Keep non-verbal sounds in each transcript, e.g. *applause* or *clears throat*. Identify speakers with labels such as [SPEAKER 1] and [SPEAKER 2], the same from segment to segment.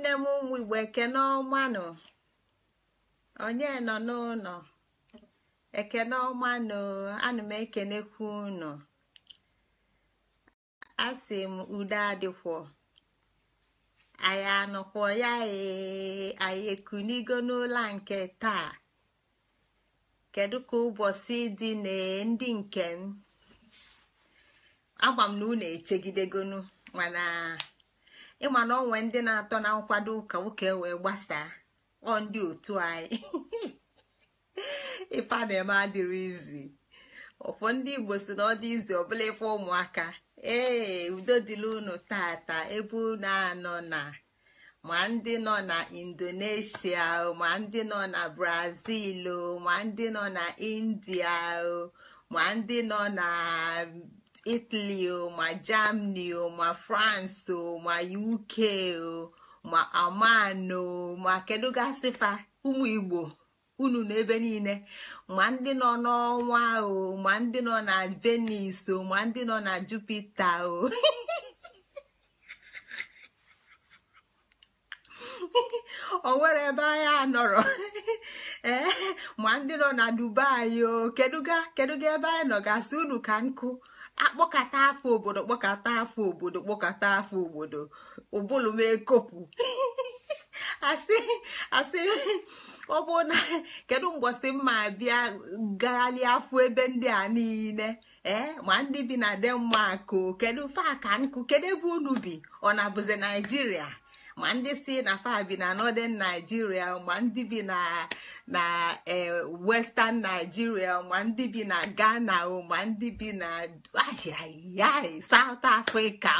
[SPEAKER 1] Nne m ụmụ igbo ekene onye nọ n'ụlọ ekene ọmanụ m ekenekwu ụnụ asị m udo adịkwọ anyị anọkwọ ya e, anyị ekunigo n'ụlọ nke taa kedu ka ụbọchị dị na ndị nke m agwa m na unu echegidegonu mana. ịma na onwe ndị na-atọ na nkwado ụka nwoke wee gbasaa ọ ndị otu anyị *laughs* ife a na-eme adịrị izi ụfọ ndị igbo si na ọ dị izi ọbụla ife ụmụaka ee udo dịla unu tata ebe unu anọ na ma ndị nọ na indonesia ma ndị nọ na brazil ma ndị nọ na india ma ndị nọ na italy o ma germany o ma france o ma uk o ma aman o ma kedu fa ụmụ igbo unu n'ebe niile ma ndị nọ n'ọnwa o ma ndị nọ na venus o ma ndị nọ na jupiter o *laughs* o nwere ebe anya anọrọ *laughs* eh, ma ndị nọ na dubai o keduga ga ebe anyị nọ gasị unu ka nkụ akpọkata afọ obodo kpọkata afọ obodo kpọkata afọ obodo ụbụlụ m ekopụ asị *laughs* asị ọ na kedu mgbọsị mma bịa gagharịa afọ ebe ndị a niile ee eh, ma ndị bi na denmark o kedu faka nkụ kedu ebe unu bi ọ na bụzi naijiria ma ndị si na fabi na northern Nigeria ma ndị bi na na eh, western Nigeria ma ndị bi na Ghana ma ndị bi na ya South Africa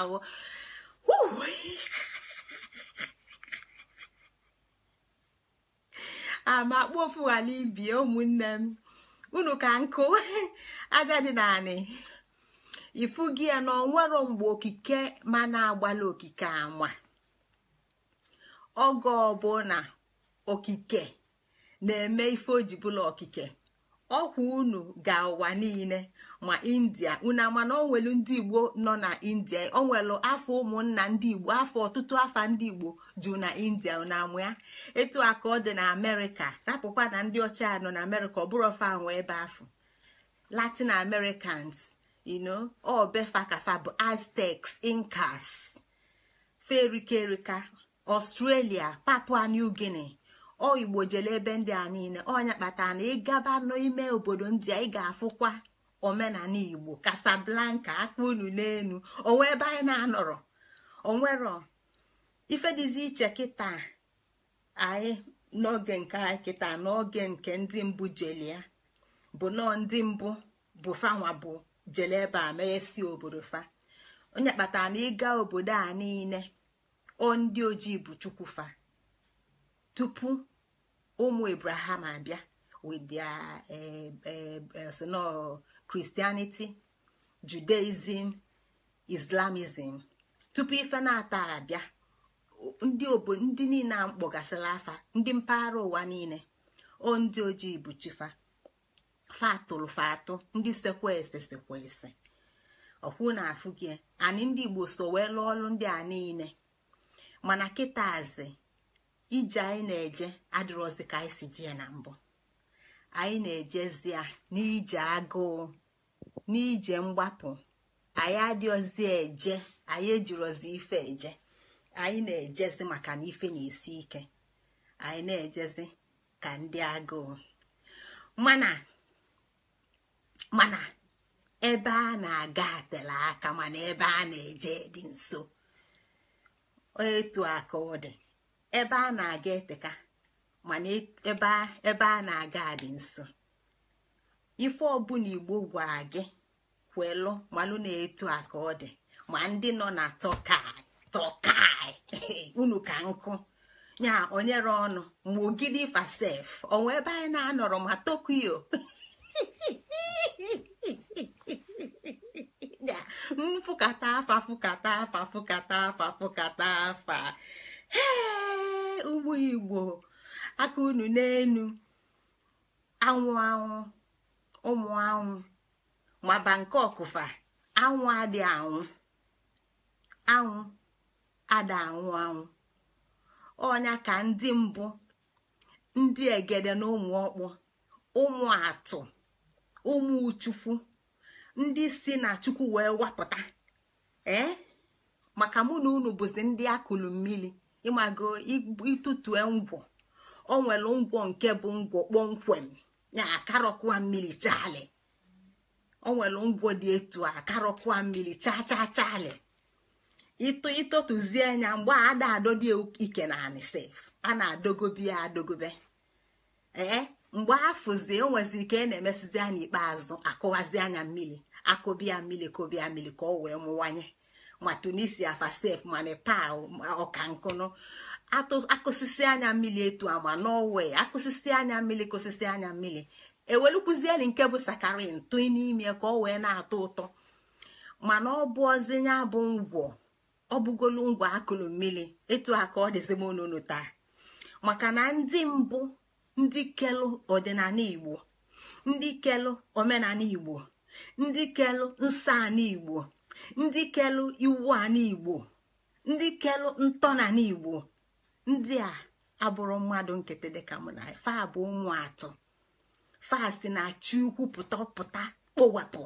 [SPEAKER 1] ama *laughs* ah, kpofu ibi ibie ụmụnne m unu ka nkụ *laughs* aja dị naanị ifu gị ya na onwero mgbe okike ma na-agbala okike anwa oge ọbụna okike na-eme ife ojibụla okike ọkwa unu ga ụwa niile ma india unu amana onwelu ndị igbo nọ na india onwelu afọ ụmụnna ndị igbo afọ ọtụtụ afa ndị igbo jụ na india unu amụ ya etu a ka ọ dị na amerịka tapụkwa na ndị ọcha nọ na amerịka ọ bụrụ ọfa anwụ ebe afọ latin americans ino obefa kafa bụ aztecs incas ferike ọstrelia papua new guinea ọ igbo jele ebe ndị a niile ọnya kpatara na ịgaba n'ime obodo ndị a ị ga-afụkwa omenala igbo kasablanka akpa unu n'elu onwe ebe anyị na-anọrọ onwero ife iche kịta anyị n'oge nke anyị kịta n'oge nke ndị mbụ jeli ya bụ nọọ ndị mbụ bụ fanwa bụ jele ebe a mee si obodo fa onye kpatara na ịga obodo a niile o ndị ojii bụ chukwufa tupu ụmụ ebraham abịa with eh, eh, eh, christianity judaism islamism tupu ife na-ata abịa ndị obodo ndị niile a mkpọgasịla afa ndị mpaghara ụwa niile o ndị ojii bụ chifa fatụrụ fatụ ndị sekwese sekwese ọkwụ na afụ gị anyị ndị igbo so wee lụọ ọrụ ndị a niile mana kịtazi ije anyị na-eje adịrọzi ka anyị si jee na mbụ anyị na ejezie n'ije agụụ n'ije mgbapụ anyị adịozi eje anyị ejirozi ife eje anyị na-ejezi maka na ife na-esi ike anyị na-ejezi ka ndị agụụ mana mana ebe a na-aga atela aka mana ebe a na-eje dị nso etu a ka dị ebe a na-aga eteka mana e, ebe a na-aga adị nso ife ọbụla igbo gwa gị kwelụ malụ na etu a ka ọ dị ma ndị nọ na tọkai *laughs* unu ka nkụ ya onyere ọnụ ma ogidi fasef onwe ebe anyị na-anọrọ ma tokyo *laughs* nfụkata afa fụkata afa fụkata afa fụkata afa ee igbo aka unu n'enu anwụ anwụ ụmụ anwụ maba nke ọkụfa anwụ adị anwụ anwụ ada anwụ anwụ ọnya ka ndị mbụ ndị egede na ụmụ ọkpụ ụmụ atụ ụmụ chukwu ndị si na chukwu wee wapụta ee maka mụ na unu bụzi ndị akụlụ mmiri ịmago ịtụtue ngwọ o nwere ngwọ nke bụ ngwọ kpọmkwem ya akarọkwa mmiri chaalị o nwere ngwọ dị etu a akarọkwa mmiri chaa chaa chaalị ịtụ ịtụtụzie anya mgbe ada ike na anị a na-adogobe ya adogobe ee mgbe afụzie onwezi ike a e na-emesizi anya ikpeazụ akụwazi anya mmiri akụbịa mmiri kụbịa mmiri ka ọ wee mụwanye ma tunisia fasef ma nepal ọka akụsisi anya mmiri etu ama norwe akụsisi anya mmiri kụsisi anya mmiri ewelukwuzieli nke bụ sakarin n'ime ka ọ wee na-atọ ụtọ mana ọ bụ ozinya bụ ngwọ ọ bụgolu ngwọ akụlụ mmiri etu a ka ọ dịzi taa maka na ndị mbụ ndị kelụ ọdịnala igbo ndị kelụ omenala igbo ndị kelụ nsọ igbo ndị kelụ iwu ala igbo ndị kelụ ntọala igbo ndị a abụrụ mmadụ nkịtị dịka mụ na fa bụ ụmụ atọ fasti na chi ukwu pụta pụta kpowapụ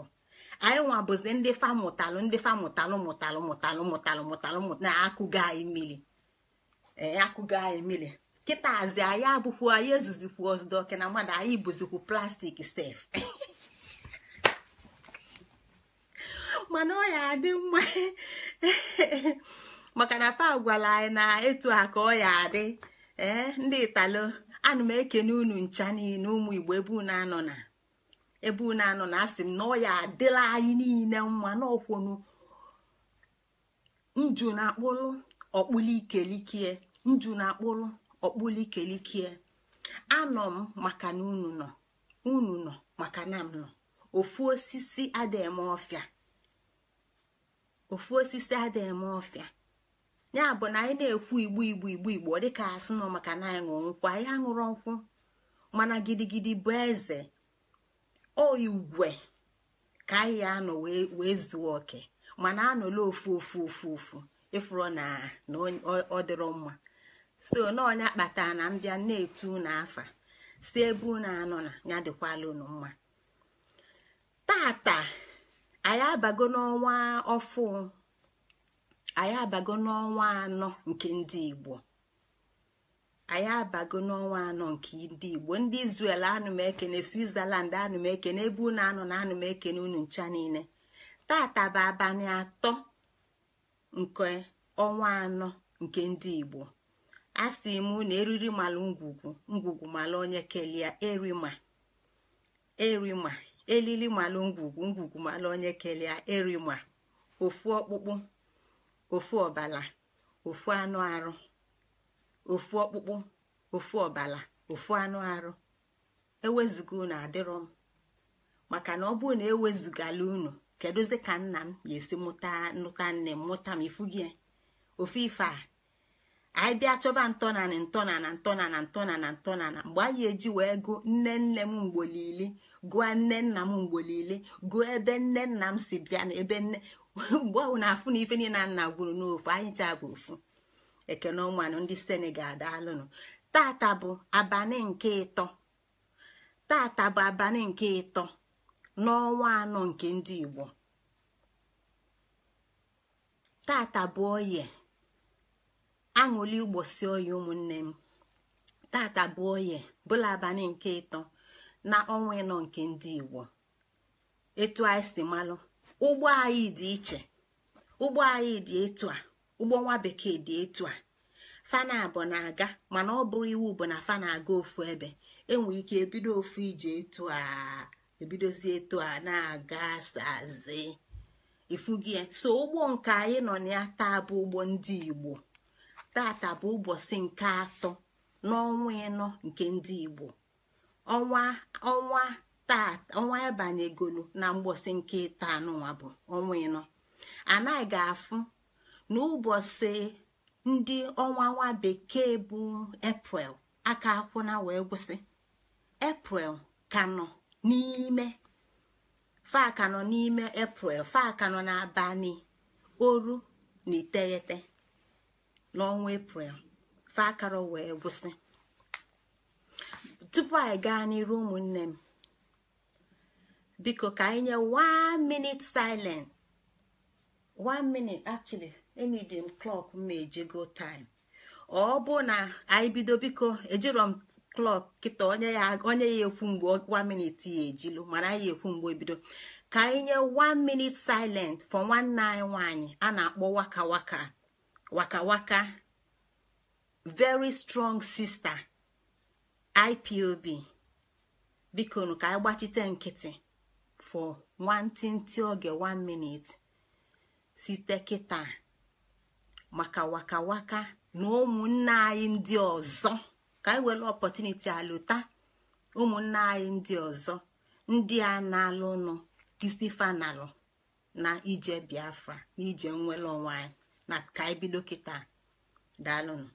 [SPEAKER 1] anyị nwa bụzi ndị fa mụtalụ ndị fa mụtalụ mụtalụ mụtalụ mụtalụ mụtalụ na akụgo anyị mmiri akụgo anyị mmiri kịtazi anyị abụkwu anyị ezuzikwu ọzdọke na mmadụ anyị bụzikwu plastik sef *laughs* mana ọ ya adị mma *laughs* maka na gwara anyị na etu a ka ọ ya adị ee eh, ndị italo ana m ekene unu ncha niile ụmụ igbo ebe unu anọ na ebe unu anọ na asị m na ọ ya adịla anyị niile mma n'ọkwụnụ na akpụlụ ọkpụlụ ikelikie na akpụlụ okpulikelikie anọ m maka na unu nọ unu nọ maka na m nọ ofu osisi adịghị m ọfịa ofu osisi adịghị m ọfịa ya bụ na anyị na-ekwu igbu igbu igbu igbo dịka asị nọ maka na anyị ṅụrụ nkwụ anyị aṅụrụ nkwụ mana gidigidi bụ eze o ka anyị anọ wee zuo oke mana anọla ofu ofu ofu ofu ịfụrụ na ọ dịrọ mma so n'ọnya kpatara na mbịa na-etu unu afa si ebe unu anọ na ya dịkwala unu mma tata anyị abago n'ọnwa ọfụ anyị abago n'ọnwa anọ nke ndị igbo anyị abago n'ọnwa anọ nke ndị igbo ndị Israel anụmekene Switzerland anụmekene ebe unu anọ na anụmekene unu ncha niile tata bụ abalị atọ nke ọnwa anọ nke ndị igbo a sị m na eriri mala ngwugwu ngwugwu mala onye kelia erima erima elili mala ngwugwu ngwugwu mala onye kelia erima ofu ọkpụkpụ ofu ọbala ofu anụ arụ ofu ọkpụkpụ ofu ọbala ofu anụ arụ ewezuga unu adịrọ m maka na ọ bụrụ na ewezugala unu kedụzi ka nna m ga-esi mụta nụta nne m mụta m ifu ofu ife a anyị bịa chọba ntọnanị ntọnana ntọnana ntọnana ntọnana mgbe anyị eji wee gụ nne nne m mgbolili gụọ nne nna m mgbolili gụọ ebe nne nna m si bịa na ebe nne *laughs* mgbe ọhụụ na-afụ na ife niile nna gwuru n'ofu anyị chaa ofu ekene ụmụanụ ndị senegal daalụnụ tata bụ abalị nke ịtọ tata bụ abalị nke ịtọ n'ọnwa anọ nke ndị igbo tata bụ oye aṅụli ụgbọsi oyi ụmụnne m tata bụ oye bụla abalị nke ịtọ na ọnwa ịnọ nke ndị igbo etu anyị si malụ ụgbọ anyị dị iche ụgbọ anyị dị etu a ụgbọ nwa bekee dị etu a fana bụ na-aga mana ọ bụrụ iwu bụ na fana aga ofu ebe enwe ike ebido ofu ije etu a ebidozi etu a na-aga sazi ifugie so ụgbọ nke anyị nọ na ya taa bụ ụgbọ ndị igbo tata bụ ụbọchị nke atọ n'ọnwa ịnọ nke ndị igbo ọnwa ọnwa tata ọnwa na mgbọsị nke ịta n'ụwa bụ ọnwa ịnọ anaghị ga-afụ n'ụbọchị ndị ọnwa nwa bekee bụ eprel aka akwụna wee gwụsị eprel ka nọ n'ime fa nọ n'ime eprel fa ka nọ n'abalị oru na iteghete n'ọnwa eprel fakara wee gwụsị tupu anyị gaa n'iru ụmụnne m biko ka anyị nye 1 minute silent 1 minute actually enidi m clock m go time ọ bụ na anyị bido biko ejiro m clock kịta onye ya onye ya ekwu mgbe 1 minute ya ejilu mana anyị ekwu mgbe ebido ka anyị nye 1 minute silent for nwanne anyị nwaanyị a na-akpọ waka waka wakawaka very strong sister ipob bikonu ka anyị gbachite nkịtị for nwantịntị oge one minute site kịta maka wakawaka na ụmụnne anyị ndị ọzọ ka anyị were ọpọtuniti alụta ụmụnne anyị ndị ọzọ ndị a na-alụ nụ isi fanalụ na ije biafra na ije nwere onwe na ka anyị bido kịta daalụnụ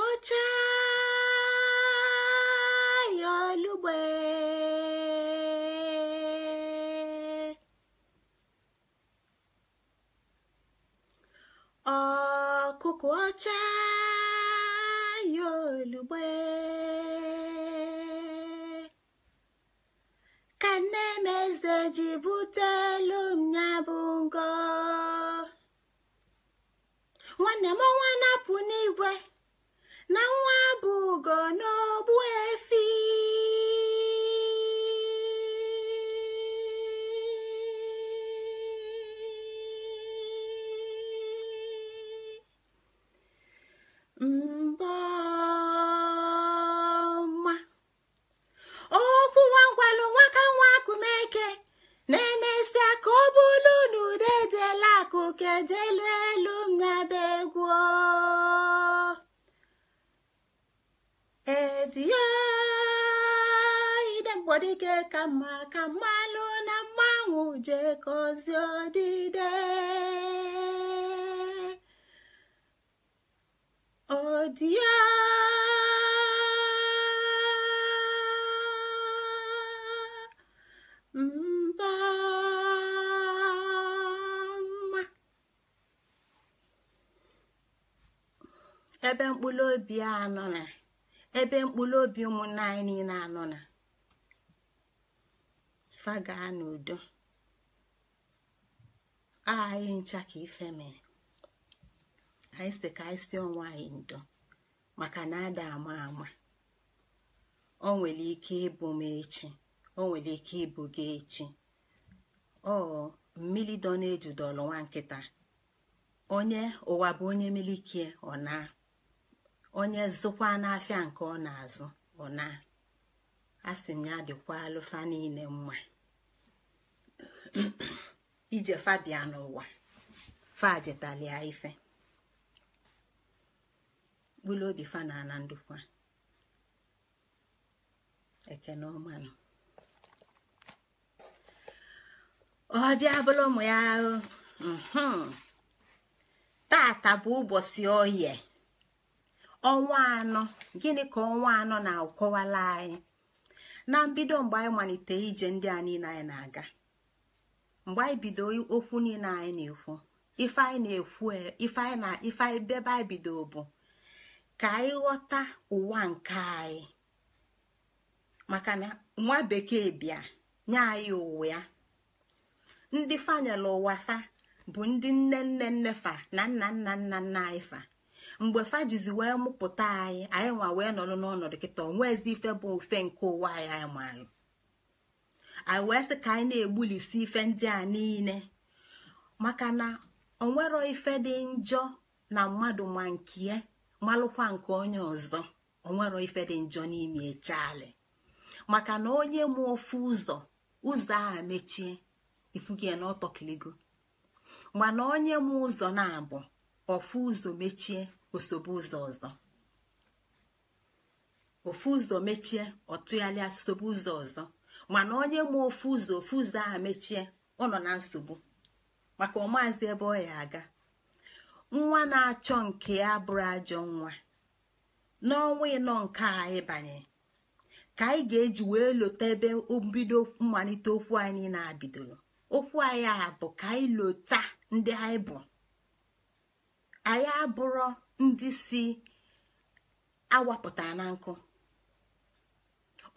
[SPEAKER 1] wụcha ya olugbe ọkụkụ ọcha ya olugbe ka nne m eze ji bụ ebe mkpụrụ obi a anọ na ebe mkpụrụ obi ụmụnna anyị niile anọ na faga n'udo anyị ncha ka ife mere anyị si ka anyị si onwe anyị ndo maka na ada ama ama o nwere ike ịbụ m echi o nwere ike ịbụ gị echi ọ mmiri dọ na ọlụ nwa nkịta onye ụwa bụ onye milikie ọ na onye zụkwa n'afịa nke ọ na-azụ ọ na asị m ya dịkwa alụfa niile mma *clears throat* ije fabia n'ụwa fajetalia ife bụlụ obi fa na ala ndụkwa ekene ọmanụ ọ bịa bụrụ ụmụ ya mhmm, taata bụ ụbọchị oye ọnwa anọ gịnị ka ọnwa anọ na-akọwala anyị na mbido mgbe anyị malite ije ndị a niile anyị na-aga mgbe anyị bido okwu niile anyị na-ekwu ife anyị na-ekwu ife anyị na ife bebe anyị bido bụ ka anyị ghọta ụwa nke anyị maka na nwa bekee bịa nye anyị ụwa ya ndị fanyela ụwa fa bụ ndị nne nne nne fa na nna nna nna nna anyị fa mgbe fajizi wee mụpụta anyị anyị nwa wee nọrọ n'ọnọdụ kịta onwezi ife bụ ofe nke ụwa anyị anyị maalụ anyị wee sị ka anyị na-egbulisi ife ndị a niile maka na onwero ife dị njọ na mmadụ ma nkie malụkwa nke onye ọzọ onwero ife dị njọ n'ime echali maka na onye mụ ofu ụzọ ụzọ a mechie ifugie na ọtọkiligo mana onye mụ ụzọ na-abụ ofu ụzọ mechie osobe ụzọ ọzọ ofu ụzọ mechie ọ tụgharịa ụzọ ọzọ mana onye ma ofu ụzọ ofu ụzọ ahụ mechie ọ nọ na nsogbu maka ọmaazi ebe ọ ya aga nwa na-achọ nke ya bụrụ ajọ nwa n'ọnwa ịnọ nke a ịbanye ka anyị ga-eji wee lote ebe mbido mmalite okwu anyị na-abidoro okwu anyị a bụ ka anyị lota ndị anyị bụ anyị abụrụ ndị si awapụta na nkụ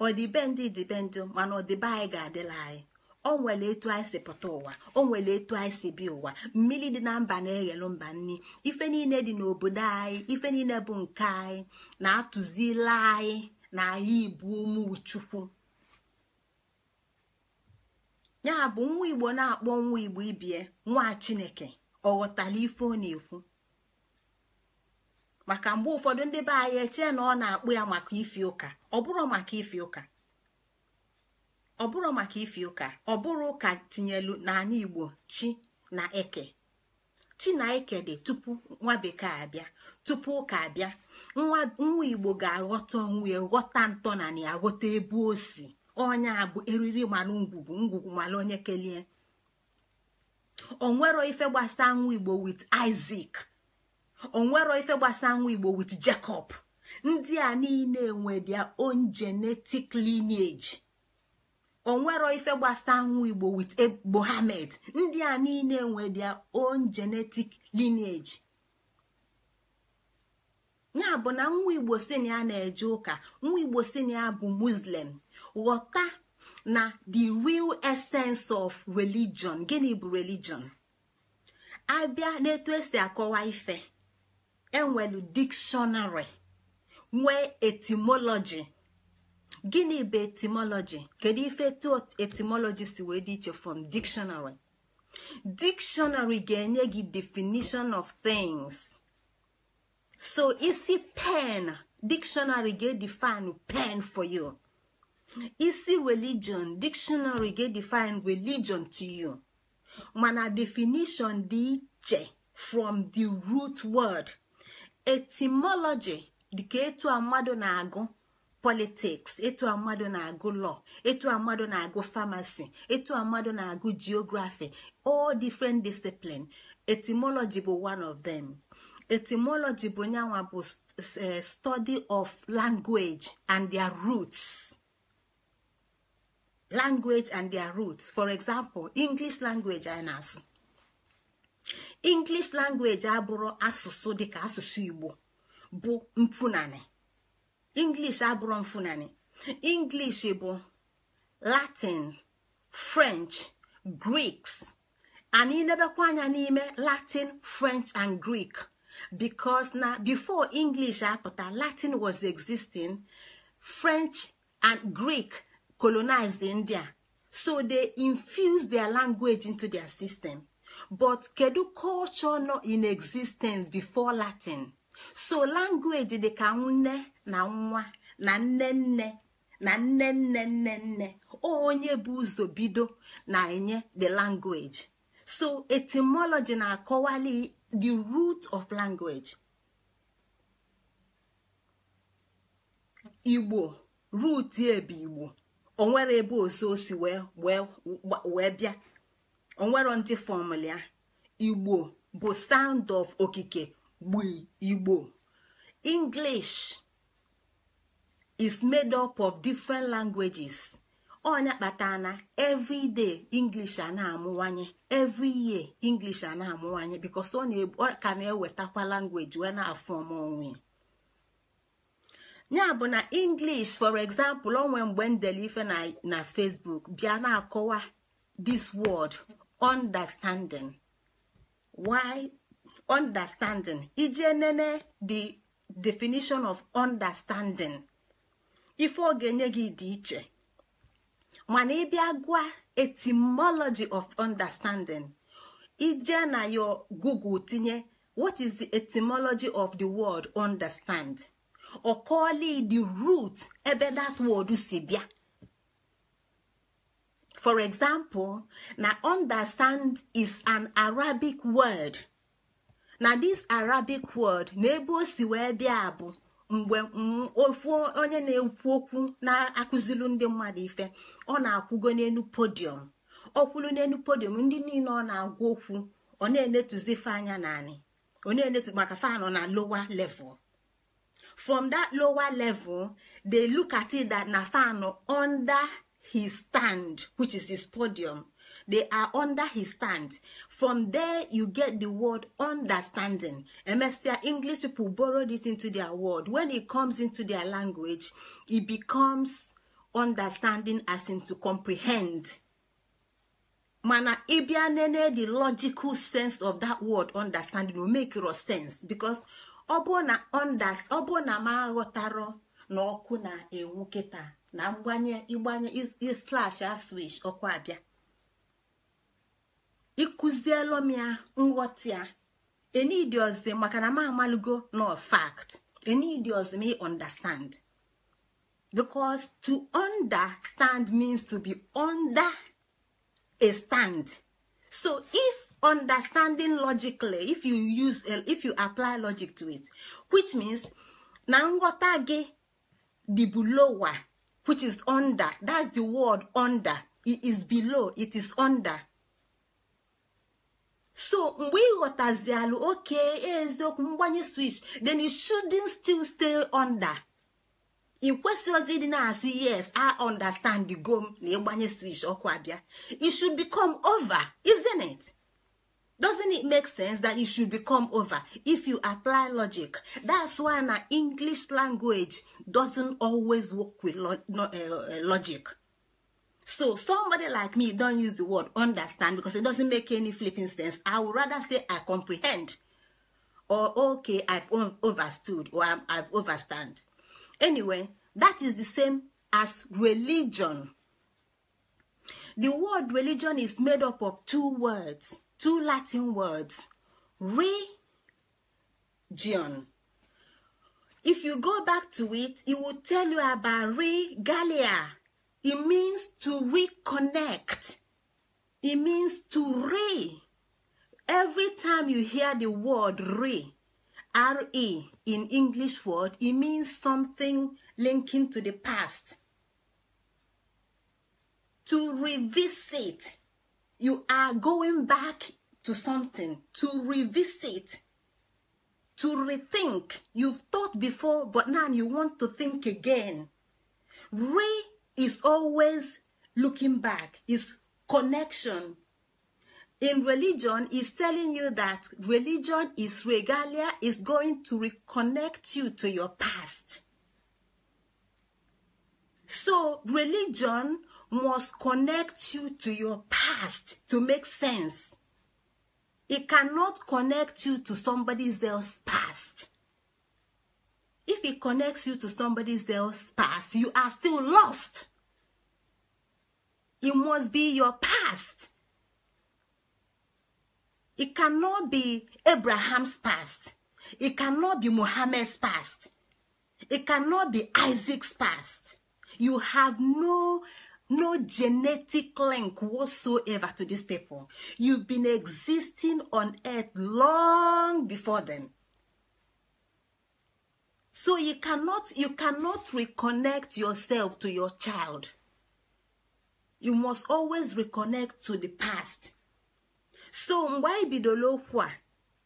[SPEAKER 1] ọdịbe ndị dịbe ndị mana ọdịbe anyị ga-adịla anyị o nwere etu anyị si pụta ụwa o nwere etu anyị si bi ụwa mmiri dị na mba na-eghelu mba nni ife niile dị n'obodo anyị ife niile bụ nke anyị na-atụzila anyị na anyị ibu ụmụ chukwu ya bụ nwa igbo na-akpọ nwa igbo ibie nwa chineke ọ ghọtara ife ọ na-ekwu maka mgbe ụfọdụ ndị be anyị echee na ọ na-akpụ ya maka ifi ụka ọ bụrụ maka ifi ụka ọ bụrụ maka ifi ụka ọ bụrụ ụka tinyelu n'ala igbo chi na eke chi na eke dị tupu nwa bekee abịa tupu ụka abịa nwa igbo ga-aghọta onwe ya ghọta ntọnala ya ghọta ebe o si onya abụ bụ eriri malụ ngwugwu ngwugwu malụ onye kelie nwero ife gbasa nwa igbo wit Isaac onwero ife gbasa nwa igbo wit jacob ndị a niile nwe their own genetic lineage onwero ife gbasa nwa igbo wit mohammed ndị a niile nwe their own genetic lineage ya bụ na nwa igbo si na ya na-eje ụka nwa igbo si ya bụ muslim ghọta na the real essence of religion gịnị bụ religion abịa na n'etu esi akọwa ife enwelu dikshonari nwee etimoloji gịnị bụ etimoloji kedu ife etu etimoloji si wee dị iche from dictionary dictionary ga-enye gị definition of things so isi pen dictionary ga define pen for you isi religion dictionary ga define religion to you mana definition dị iche from the root word etimoloji dịka etu a na-agụ politics etu a mmadụ na-agụ lọ etu a mmadụ na-agụ famasi etu a mmadụ na-agụ geography all different discipline etimology bụ one of them etimology bụ nyanwa bụ eh, study of language and their roots language and their roots for example english language anyị na-asụ english language abụrụ asụsụ dịka asụsụ igbo bụ mfunani english abụrụ mfunani english bụ latin french greeks anyị nebekwa anya n'ime latin french and greek because na before english apụta latin was existing french and greek colonized india so they infused their language into their system but kedu culture nọ in existence before latin so language dị ka nne na nwa na nne nne na nne nne nne nne onye bụ ụzọ bido na-enye the language so etymology na-akọwali the root of language igbo root ya bụ igbo onwere ebe osi osi wee wee bịa onwero ndị fọmụla igbo bụ sound of okike gbu igbo english is made up of different languages onya kpata na every day english a na-amụwanye every year english a na-amụwanye because ọ ka na-ewetakwa language wee na-afọm onwe ya bụ na english for example onwe mgbe ndele ife na facebook bịa na-akọwa this word understanding why understanding ije nene the definition of understanding ife ọ ga-enye gị dị iche mana ịbịa gwa etymology of understanding ije na yo google tinye what is the etymology of the word understand ọ kọọla the root ebe that word si bịa for example na understand is an arabic word na this arabic word na ebe o si wee bịa bụ mgbe ofu onye na-ekwu okwu na-akụzilu ndị mmadụ ife ọ na-akwụgo n'elu podium ọkwụlu n'elu podium ndị niile ọ na-agwa okwu ọ na-enetuzi anya naanị na-enetu maka fanọ na lowa level from that lowa level they look at it that na fanọ under his stand which is his podium they are under his stand from there you get the word understanding emesia english people borrow this into their word when it comes into their language e becomes understanding as in to comprehend mana ibianene nene the logical sense of that word understanding will make your sense because ọ bụ na ma aghọtara na ọkụ na-enwu kịta na mgbanye ịgbanye flash aswish ọkwa abịa ịkụziela m ya nghọta ya enidi maka na m amalugo no fact enidi ọzọ m understand because to understand means to be under a stand so if understanding logically if you use if you apply logic to it which means na nghọta gị dị bụ which is under that's the word under it is below it is under so mgbe ị ghọtazialụ oke eziokwu mgbanye switch then you shouldn't still stay under ị kwesịghịzi dị na-asị yes i understand go m na ịgbanye switch ọkwa bịa it should become over isn't it? doesn't it make sense that you should become over if you apply logic that's why na english language doesn't always work with lo no, uh, logic so somebody like me don use the word understand because it doesn't make any flipping sense i would rather say i comprehend or okay i've overstood or i'm have overstand anyway that is the same as religion the word religion is made up of two words two latin words region if you go back to it it will tell you about regalia it means to reconnect it means to re every time you hear the word re re in english word it means something linking to the past to revisit you are going back to something to revisit to rethink you've thought before but now you want to think again re is always looking back is connection in religion is telling you that religion is regalia is going to reconnect you to your past so religion must connect you to your past to make sense. It cannot connect you to somebody else's past. If it connects you to somebody else's past, you are still lost. It must be your past. It cannot be Abraham's past. It cannot be Mohammed's past. It cannot be Isaac's past. You have no no genetic link whatsoever to this people. You've been existing on earth long before then. So you cannot you cannot reconnect yourself to your child. You must always reconnect to the past. So mgbe anyị bidoro okwu a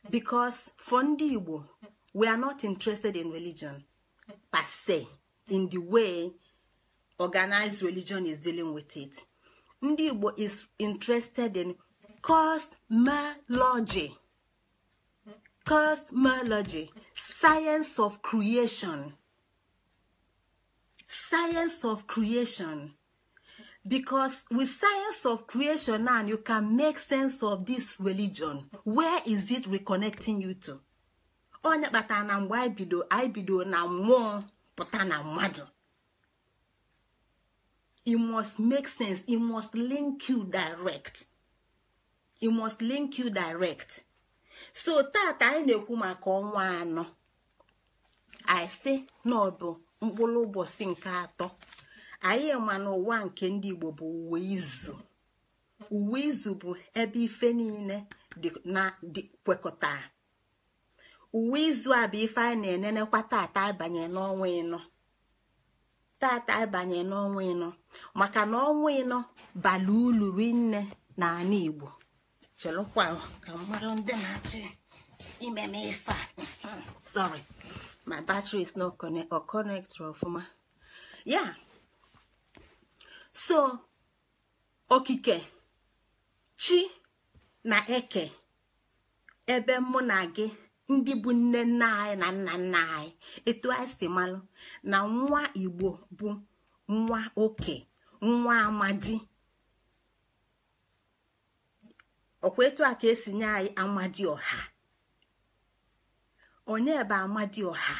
[SPEAKER 1] because for ndị Igbo we are not interested in religion per se in the way organized religion is dealing with it. Ndị Igbo is interested in cosmology. Cosmology, science of creation. Science of creation. Because with science of creation now, you can make sense of this religion. Where is it reconnecting you to? Onye kpatara na mgbe anyị bido anyị bido na mmụọ pụta na mmadụ. it must make sense it must link you direct it must link you direct so tata anyị na-ekwu maka ọnwa anọ anyị sị na ọ bụ mkpụrụ ụbọchị nke atọ anyị ma na ụwa nke ndị Igbo bụ uwe izu uwe izu bụ ebe ife niile na dị kwekọtara uwe izu a bụ ife anyị na-enenekwa tata abanye n'ọnwa ịnọ tata abanye n'ọnwa ịnọ maka na ọnwa ịnọ bala ulu rinne na ala igbo chelụkwa ka mmadụ ndị na-achị imeme ife a hmm, sorry my battery is not connect or connect ọfụma ya so okike chi na eke ebe mụ na gị ndị bụ nne nna anyị na nna nna anyị etu anyị si malụ na nwa igbo bụ nwa oke nwa amadi ọkwa etu a ka esi nye anyị amadi ọha onye bụ amadi ọha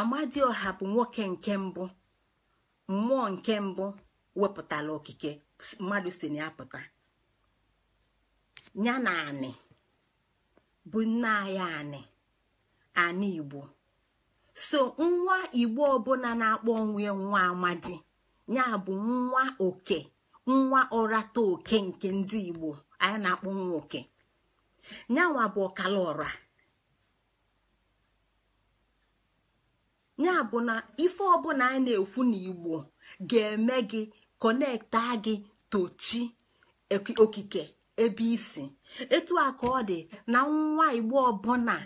[SPEAKER 1] amadi ọha bụ nwoke nke mbụ mmụọ nke mbụ wepụtara okike mmadụ si na ya pụta ya na anị bụ nne anyị anị anị igbo so nwa igbo ọbụla na-akpọ onwe nwa amadi ya bụ nwa oke nwa ọrata oke nke ndị igbo anyị na-akpọ nwa oke nyanwa bụ ọkala ọra ya bụ na ife ọbụla anyị na-ekwu n'igbo ga-eme gị kọnekta gị tochi okike ebe isi etu aka ọ dị na nwa igbo ọbụla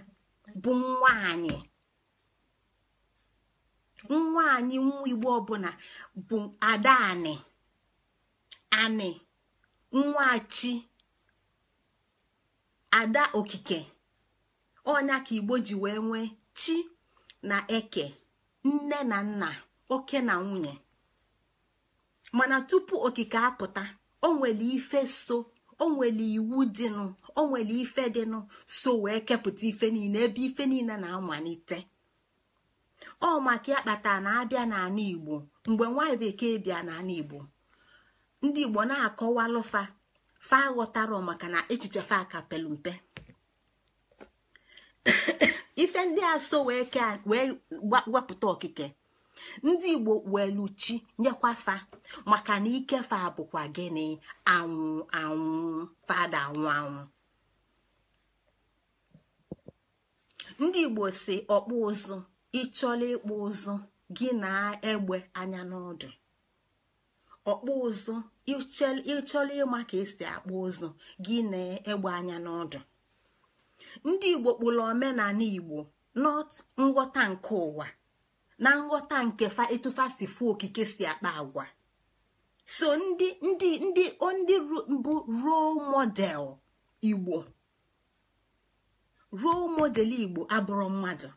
[SPEAKER 1] bụ nwaanyị nwaanyị nwa igbo ọbụla bụ ada anị anị nwachi ada okike ọnya ka igbo ji wee nwee chi na eke nne na nna oke na nwunye mana tupu okike apụta o nwere ife so o iwu dịnụ o ife dịnụ so wee kepụta ife niile ebe ife niile na-amalite ọ maka ya kpatara na abịa n'ala igbo mgbe nwaanyị bekee bịa n'ala igbo ndị igbo na lụfa fa ọ maka na echiche fa pelu mpe *coughs* ife ndị a so wee wepụta okike ndị igbo welu chi maka na ikefa bụkwa gịnị anwụ anwụ fada anwụ anwụ ndị igbo si ọkpụ ụzụ ịchọla ịkpụ ụzụ gị na egbe anya n'ọdụ ọkpụ ụzụ ịchọla ịma ka esi akpụ ụzụ gị na egbe anya n'ọdụ ndị igbo kpụrụ omenala igbo not nghọta nke ụwa na nghọta nke fa etufa si okike si akpa agwa so ndị ndị ndị ndị mbụ role model igbo role model igbo abụrụ mmadụ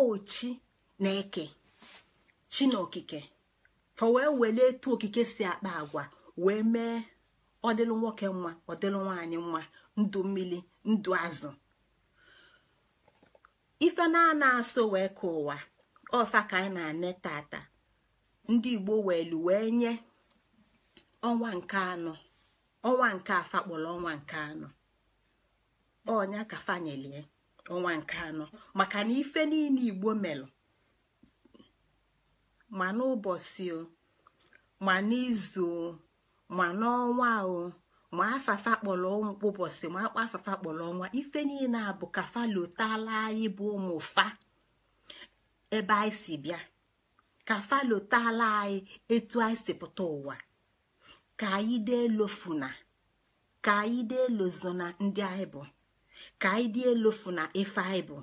[SPEAKER 1] ochi na eke chi na okike fa wee wele etu okike si akpa agwa wee mee ọdịlụ nwoke nwa ọdịlụ nwaanyị nwa ndụ mmiri ndụ azụ ife na-ana asọ wee ka ụwa ọfa ka anyị na-ane tata ndị igbo welu wee nye ọnwa nke anọ ọnwa nke afa kpọrọ ọnwa nke anọ ọnya ka fanyelie ọnwa nke anọ maka na ife niile igbo melụ ma n'ụbọchị o ma n'izu o ma n'ọnwa o ma afafa kpọrọ ụbọchị ma akpa afafa kpọrọ ọnwa ife niile a bụ ka falotala anyị bụ ụmụ fa. ebe anyị si bịa ka falotala anyị etu anyị si pụta ụwa ka anyị dee lofuna ka anyị dee lozona ndị anyị bụ ka anyị dee lofuna ife anyị bụ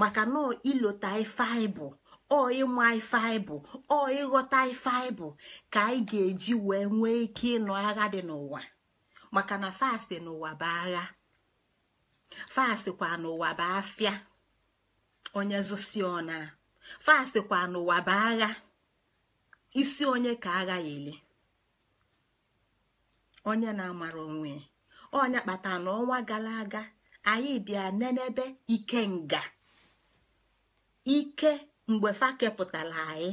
[SPEAKER 1] maka na ilota ife anyị bụ ọ ịma ife anyị bụ ịghọta ife anyị bụ ka anyị ga-eji wee nwee ike ịnọ agha dị n'ụwa maka na fasti n'ụwa bụ agha fasti kwa n'ụwa bụ afịa onye zụsi fasịkwa n'ụwa bụ agha isi onye ka agha ya ele onye na-amara onwe onye kpata na ọnwa gara aga anyị bịa nenebe ike nga ike mgbe fa kepụtara anyị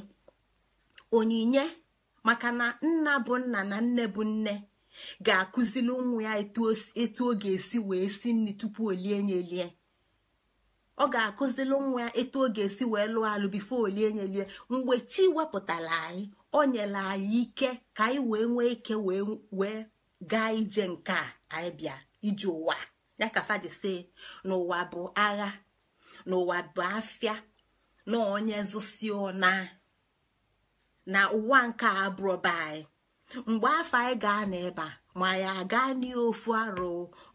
[SPEAKER 1] onyinye maka na nna bụ nna na nne bụ nne ga akụziri nwa ya etu ọ ga-esi wee si nri tupu o lie ọ ga-akụzilụ nwa etu ọ ga-esi wee lụọ alụ bifo olie nyelie mgbe chi wepụtara anyị o nyere anyị ike ka anyị wee nwee ike wee gaa ije nke a anyị bịa ije ụwa ya ka faji si n'ụwa bụ agha n'ụwa bụ afịa na onye zụsi na na ụwa nke abụrọba anyị mgbe afọ anyị gaa n'ebe a ma ya agaa n'ofu arụ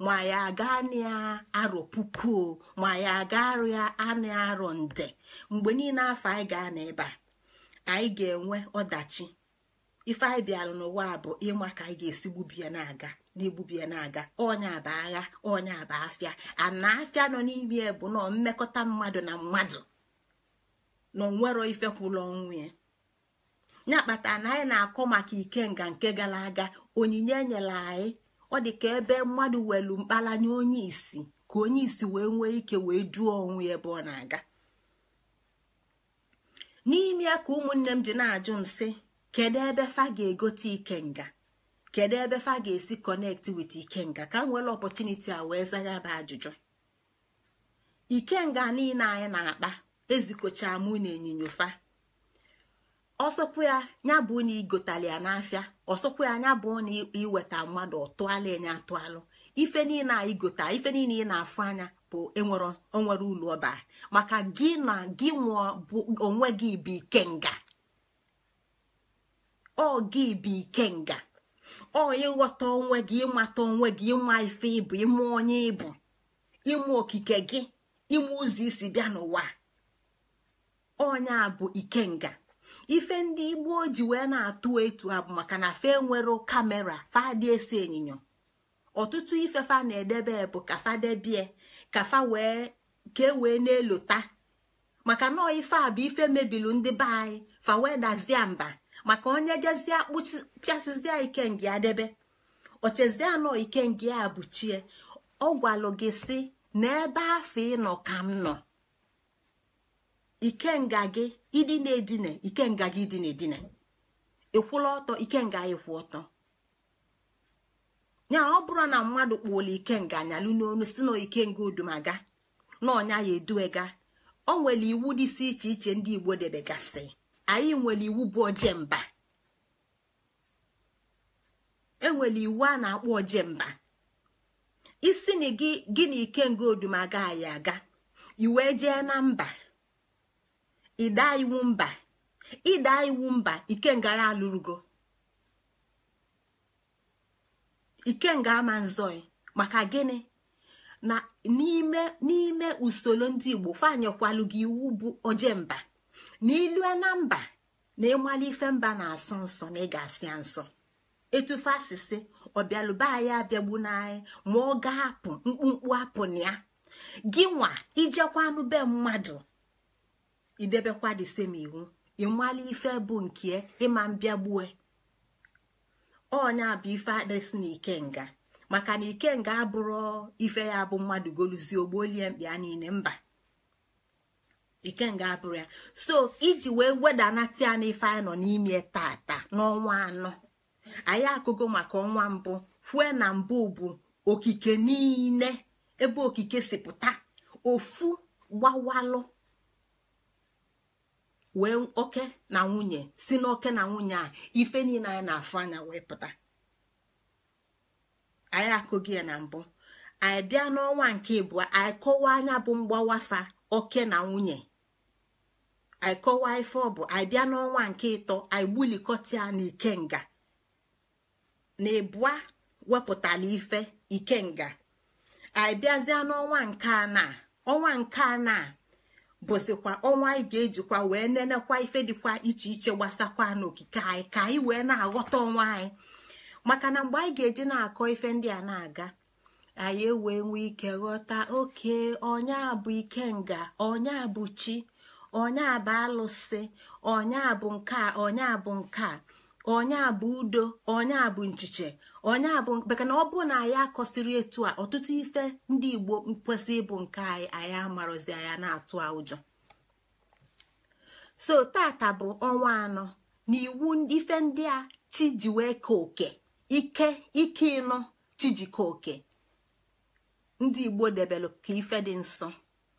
[SPEAKER 1] ma ya aga agaa arọ puku ma ya aga ya anụ arọ nde mgbe niile afọ anyị gaa n'ebe a anyị ga-enwe ọdachi ife anyị bịara n'ụwa bụ ịma ka anyị ga-esi gbubie na-aga n'igbubie na-aga onya bụ agha onya bụ afịa ana afịa nọ n'ime bụ nọ mmekọta mmadụ na mmadụ na onwero ife kwụrụ ọnwụ ya ya kpatara na anyị na-akọ maka ikenga nke gara aga onyinye enyela anyị ọ dị ka ebe mmadụ welu mkpalanya onye isi ka onye isi wee nwee ike wee duo onwe ebe ọ na-aga n'ime ya ka ụmụnne m ji na-ajụ m sị kedu ebe fa ga-egote ikenga kedu ebe fa ga-esi konekt wit ikenga ka m nwere opọtuniti a wee zanya bụ ajụjụ ikenga niile anyị na-akpa ezikọcha mụ na fa. ọsọkwu ya ya bụ na igotali ya n'afịa ọsọkwu ya ya bụ na iweta mmadụ ọtụala enye atụalụ ife niile a igota ife niile ị na-afụ anya bụ enwere ụlọ ọba maka gị na gị nwụọ bụ onwe gị bụ ikenga ọ gị bụ ikenga ọ ịghọta onwe gị ịmata onwe gị ịma ife ịbụ ịmụ onye ịbụ ịmụ okike gị ịmụ ụzọ isi bịa n'ụwa onye a bụ ikenga ife ndị igbo ji wee na-atụ etu ha bụ maka na fe nwere kamera fadị esi ịnyịnya ọtụtụ ife fa na-edebe bụ ka fa debie ka fa wee ka e wee na-elota maka nọọ ife a bụ ife mebilu ndị be anyị fa wee dazie mba maka onye jezie pịasịzie ikengi adebe ochezie anọ ikengi a bụ chie ọ gwalụ gị si n'ebe afọ ịnọ ka m nọ ikenga gị idina edina ikenga gị idina edina. ịkwụla ọtọ ikenga ya kwụ ọtọ ya ọ bụrụ na mmadụ kpuola ikenga anyalụ n'onu si na ikenga odumaga na ọnya ya eduwega o nwere iwu si iche iche ndị igbo debegasị anyị nwere iwu bụ ojemba enwere iwu a na-akpọ ojemba isi na gị gị na ikenga odumaga anyị aga iwee jee na mba ịda iwu mba ịda iwu mba ikengara alụrụgo ikenga ama maka gịnị na n'ime n'ime usoro ndị igbo fanyekwalu gị iwu bụ oje mba na ilue na mba na ịmali ife mba na-asọ nsọ na ị asị ya nsọ etufe asịsị ọbịalụba anyị abịagbu n'anyị ma ọ ga-apụ mkpumkpu apụ na ya gị nwa ijekwanụ be mmadụ idebekwa the same iwu ịmala ife bụ nke ịma mbịagbue onye bụ ife adịsị na ikenga maka na ikenga abụrụ ife ya bụ mmadụ goluzie ogbolie a niile mba ikenga abụrụ ya so iji wee wedanata ife anyị nọ n'ime tata n'ọnwa anọ anyị akụgo maka ọnwa mbụ kwue na mbụ bụ okike niile ebe okike si pụta ofu gbawalụ wee oke na nwunye si n'oke na nwunye a ife niile anyị na-afụ anya wee pụta anyị akụghị ya na mbụ anyị bịa n'ọnwa nke ịbụọ anyị kọwaa anya bụ mgbawafa oke na nwunye anyị kọwaa ife ọ bụ anyị bịa n'ọnwa nke ịtọ anyị gbulikọta na ikenga na ịbụa wepụtara ife ikenga anyị bịazịa n'ọnwa nke anọ ọnwa nke anọ bụzikwa ọnwa anyị ga-ejikwa wee nenekwa ife dịkwa iche iche gbasakwa n'okike anyị ka anyị wee na-aghọta ọnwa anyị maka na mgbe anyị ga-eji na-akọ ife ndị a na-aga anyị ewee nwee ike ghọta oke onye bụ ike nga, onye bụ chi onye bụ alụsị onye bụ nke onye bụ nke a bụ udo onye bụ nchiche onye abụ maka na ọ bụ na anyị akọsiri etu a ọtụtụ ife ndị igbo kwesị ịbụ nke anyị anyị amarozi anya na-atụ a ụjọ so tata bụ ọnwa anọ na iwu ife ndị a chi wee ka oke ike ike ịnọ chi ka oke ndị igbo debelụ ka ife dị nsọ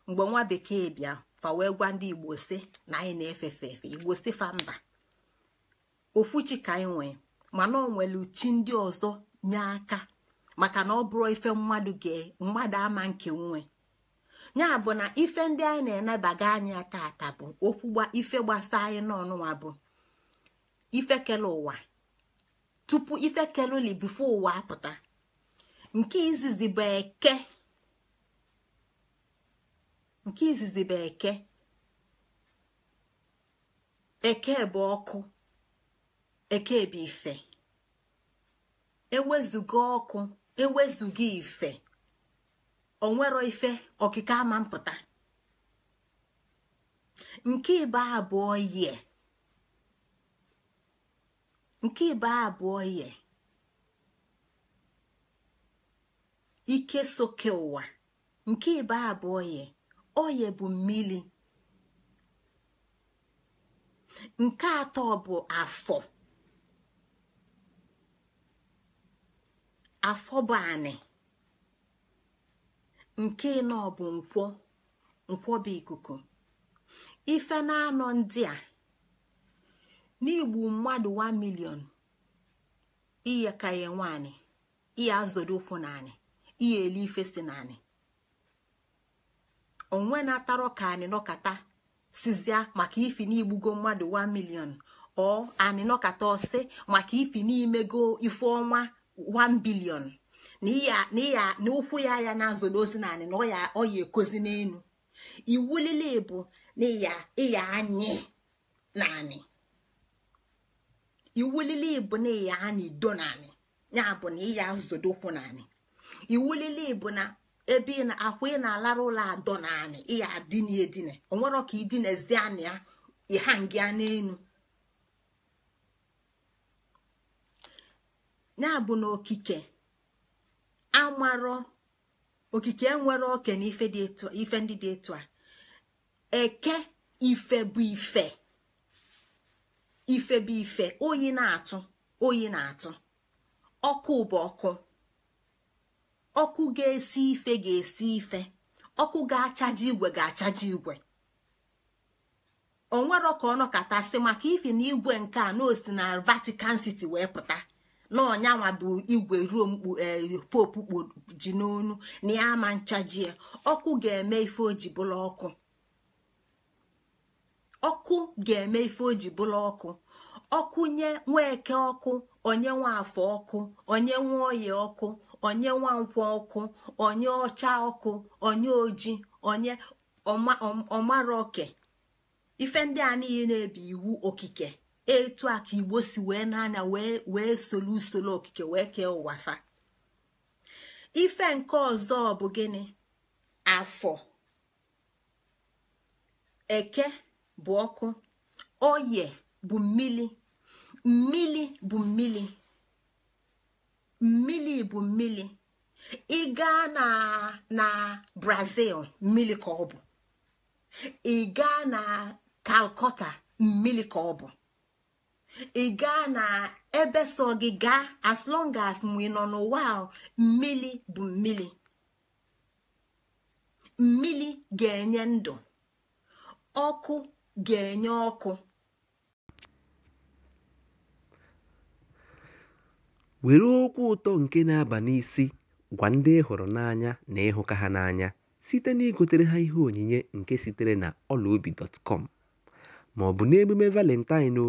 [SPEAKER 1] mgbe nwa bekee bịa fa wee gwa ndị igbo si na anyị na-efefe efe igbo si fa mba ofu chi ka anyị nwee mana ọ nwere uchi ndị ọzọ nye aka maka na ọ bụrụ ife mmadụ ama nke nwe ya bụ na ife ndị anyị na enabaga anya tata bụ okwu ife gbasa anyị n'ọnụwa bụ ife kele ụwa tupu ife keluli bifo ụwa apụta nke izizi bụ eke nke eke eke bụ ọkụ ife, ewezuga ọkụ ewezuga ife onwero ife okike ama mpụta nke ibe abụọ yie nke ibe abụọ ike soke ụwa nke ibe abụọ yie oye bụ mmiri nke atọ bụ afọ Afọ bụ anị nke nọ bụ nkwọ nkwọ bụ ikuku ife na-anọ ndị a n'igbu mmadụ 1 million iye ka ya nwaanyị iye ụkwụ naanị iye elu ife si naanị onwe na-atarọ ka anyị nọkata sizia maka ifi n'igbugo mmadụ 1 million ọ nọkata ọsị maka ifi n'imego ife ọnwa 1 bilion na ụkwụ ya ya na-azụli ozi naanị na ọ ya ekozi n'elu iwu lile bụ na ịya anyị naanị iwu lile bụ na ịya anyị do naanị ya bụ na ịya azụdo ụkwụ naanị iwu lile bụ na ebe ị na-akwụ ị na-alara ụlọ adọ naanị ịya adịnedine onwero ka idinezi anị ya ịha ngịa n'elu ya bụ na okike amarọ okike enwere oke na ndị dị etu a eke ife bụ ife ife bụ ife oyi na-atụ oyi na-atụ ọkụ bụ ọkụ ọkụ ga-esi ife ga-esi ife ọkụ ga-achaji igwe ga-achaji igwe o ka ọ nọkọtasị maka ife na igwe nke a na osi na Vatican wee pụta na ọnyanwa bụ igwe ruo mkpu e, popu ji n'onu na ya ama nchajie ọkụ ga-eme ife oji bụla ọkụ ọkụ bụla ọkụ ọkụ nye nweke ọkụ onye nwa afọ ọkụ onye nwa oyi ọkụ onye nwa ọkụ onye ọcha ọkụ onye oji onye ọmara oke ife ndị a niile na-ebi iwu okike etu a ka igbo si wee n'anya wee solu usoro okike wee kee ụwa fa ife nke ọzọ bụ gịnị afọ eke bụ ọkụ oye bụ mmili mmili bụ mmili mmili bụ mmili ị gaa na na brazil mmili ka ọ bụ ị gaa na kalkọta mmili ka ọ bụ ị gaa na ebe so gị gaa as long as mgbe ị nọ n'ụwa mmili bụ mmili mmili ga-enye ndụ ọkụ ga-enye ọkụ
[SPEAKER 2] were okwu ụtọ nke na-aba n'isi gwa ndị hụrụ n'anya na ịhụka ha n'anya site na igotere ha ihe onyinye nke sitere na ọlaobi dọtkọm ma ọ bụ n'emume valentine o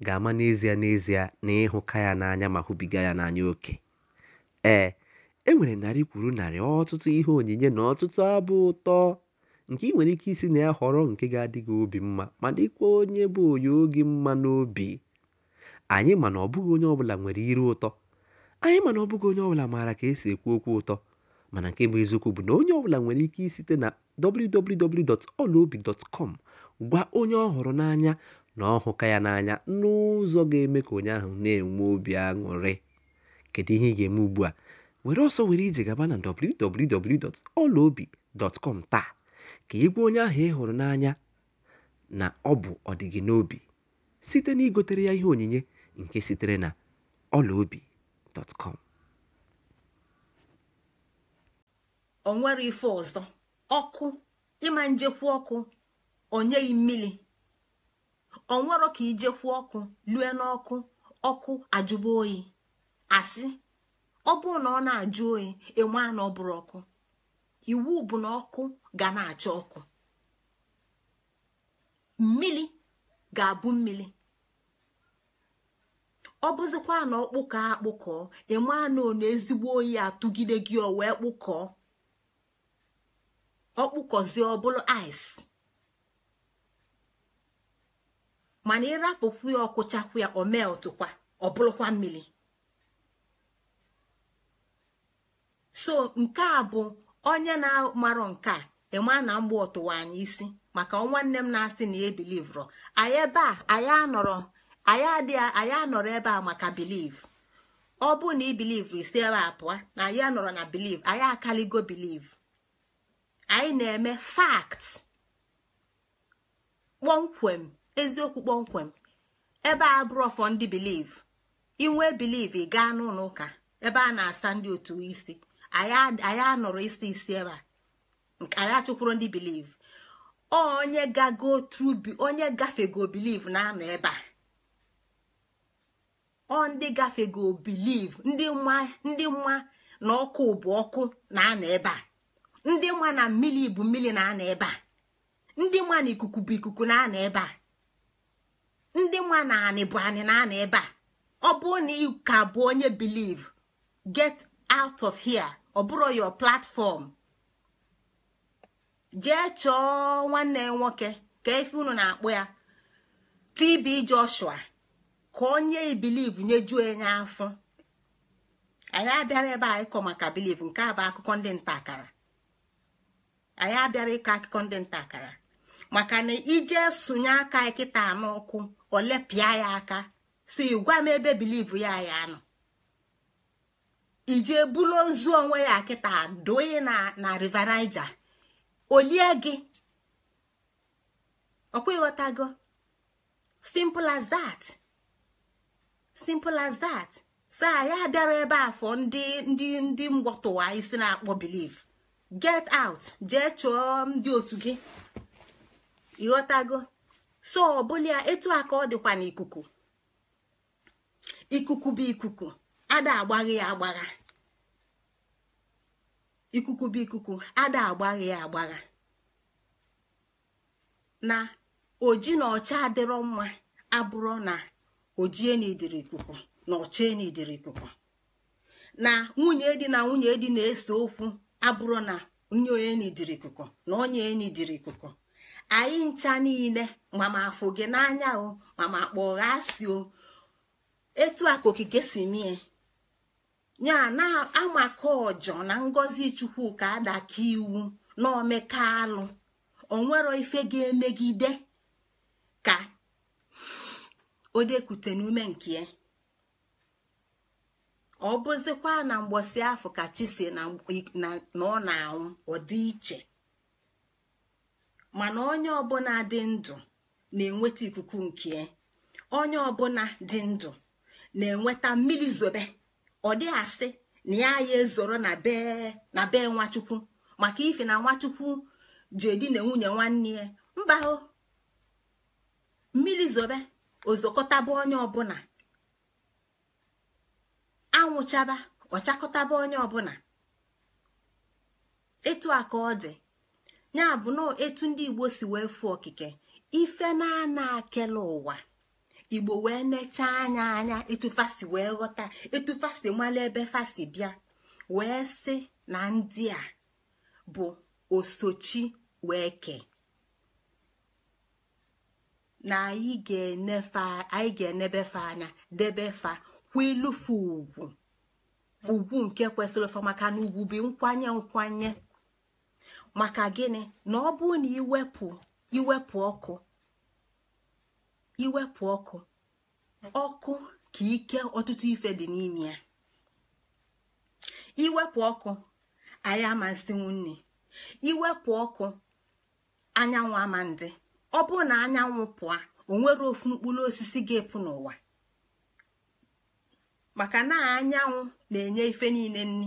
[SPEAKER 2] ga-ama n'ezie n'ezie na ịhụka ya n'anya ma hụbiga ya n'anya oke ee e nwere narị kwuru narị ọtụtụ ihe onyinye na ọtụtụ abụ ụtọ nke ị nwere ike isi na ya họrọ nke ga-adị gị obi mma ma dịkwa onye bụ onye oge mma n'obi anyị ma na ọ bụghị onye ọbụla nwere iru ụtọ anyị ma na ọ bụghị onye ọbụla maara ka esi ekwu okwu ụtọ mana nke bụ eziokwu bụ na onye ọbụla nwere ike site na www.olaobi.com gwa onye ọ hụrụ n'anya na ọ ya n'anya n'ụzọ ga-eme ka onye ahụ na-enwe obi aṅụrị kedu ihe ị ga-eme ugbu a were ọsọ were ije gaba na www.olaobi.com taa ka ị onye ahụ ị hụrụ n'anya na ọ bụ ọdịgị n'obi site na igotere ya ihe onyinye nke sitere na olaobi.com
[SPEAKER 1] onwere nwere ife ọzọ ọkụ ịma njekwa ọkụ onye mmiri onwero ka ijekwu ọkụ lue n'ọkụ ọkụ ajụba oyi asị ọ bụrụ na ọ na-ajụ oyi enwe na ọ ọkụ iwu bụ na ọkụ ga na-acha ọkụ mmiri ga-abụ mmiri ọ bụzikwa na ọkpụkọ akpụkọọ enwe na ọ ezigbo oyi atụgide gị o wee kpụkọọ ọkpụkọzie ọbụla ice mana ịrapụkwu ya ọkụchakwu ya omee ọtụkwa ọ bụrụkwa mmiri so nke a bụ onye na-amarọ nke a ịma na mgbe ọtụwa anyị isi maka nwanne m na-asị na ya bilivro anyị ebe a anyị anọrọ anyị adịghị anyị anọrọ ebe a maka biliv ọ bụ na ibiliv isi ebe a pụọ na anyị anọrọ na biliv anyị akaligo biliv anyị na-eme fakt kpọmkwem eziokwu kpọmkwem ebe a bụrụ fọ ndị biliv inwee biliv gaa n'ụlọ ụka ebe a na-asa ndị otu isi anyị anọrọ isi isi ebe a anyị achụkwuru ndị biliv onye gago trubi onye gafego biliv na a ọ ndị ndị mma na ọkụ bụ na-anọ ebe a ndị mma na mmiri bụ mmiri na a na ikuku bụ ikuku na-anọ ebe a ndị nwa na anị bụ anị na anị ebe a ọ bụrụ na ị ka bụ onye biliv get out of here ọ bụrụ platfọm platform jee chọọ nwanne nwoke ka efe unu na akpụ ya TB Joshua ka onye biliv nyejuo enye afọ anyị abịara ebe a ịkọ maka biliv nke a bụ akụkọ ndị nta anyị abịara ịkọ akụkọ ndị nta akara maka na ije sonye aka kịta n'ọkụ olepịa ya aka si gwa m ebe biliv ya ya nọ ije bulo nzu onwe ya kịta doye na na riverija olie gị ọkwa ịghọtago simple as that simple as that saa ya bịara ebe afọ ndị ndị ndị mgbọtụwa isi na-akpọ biliv get out jee chọọ ndị otu gị ịghọtago so ọ ọbụla etu aka ọ dịkwa n'ikuku ikuku bụ ikuku ada agbaghị ya agbagha ikuku bụ ikuku ya agbagha na oji na ọcha adịrọ mma abụrụ na ojie na ikuku na ọcha na ikuku na nwunye dị na nwunye dị na-ese okwu abụrọ na onye onye na ikuku na onye onye na ikuku anyị ncha niile mama afụ gị n'anya o mama kpọọ gha si o etu a ka okike si mie ya na amaka ọjọ na ngọzi ka adaka iwu na omeka alụ onwero ife ga-emegide ka o n'ume nke ya ọ bụzikwa na mgbọsi afọ ka chi na ọ na-anwụ ọ iche mana onye ọbụla dị ndụ na-enweta ikuku nke onye ọbụla dị ndụ na-enweta mmiri zobe ọ dị asị na ya ya ezoro na bee na bee nwachukwu maka ife na nwachukwu ji edi na nwunye nwanne ya mba o mmiri zobe ozokọtaba onye ọbụla anwụchaba ọchakọtaba onye ọbụla etu a ka ọ ya bụ na etu ndị igbo si wee fụ okike ife na-ana akele ụwa igbo wee nechaa anya anya etufasi wee ghọta etufasi mala ebe fasi bịa wee si na ndị a bụ osochi wee kee na anyị ga-enebe fa anya debe fa kwa ilufu ugwu ugwu nke kwesịrị fa maka na ugwu bi nkwanye nkwanye maka gịnị na ọ bụ na iwepụ iwepụ ọkụ iwepụ ọkụ ọkụ ka ike ọtụtụ ife dị n'ime ya iwepụ ọkụ anyị amasị iwepụ ọkụ anyanwụ ama ndị ọ bụ na anyanwụ pụa onwere ofu mkpụrụ osisi ga-epụ n'ụwa maka na anyanwụ na-enye ife niile nni.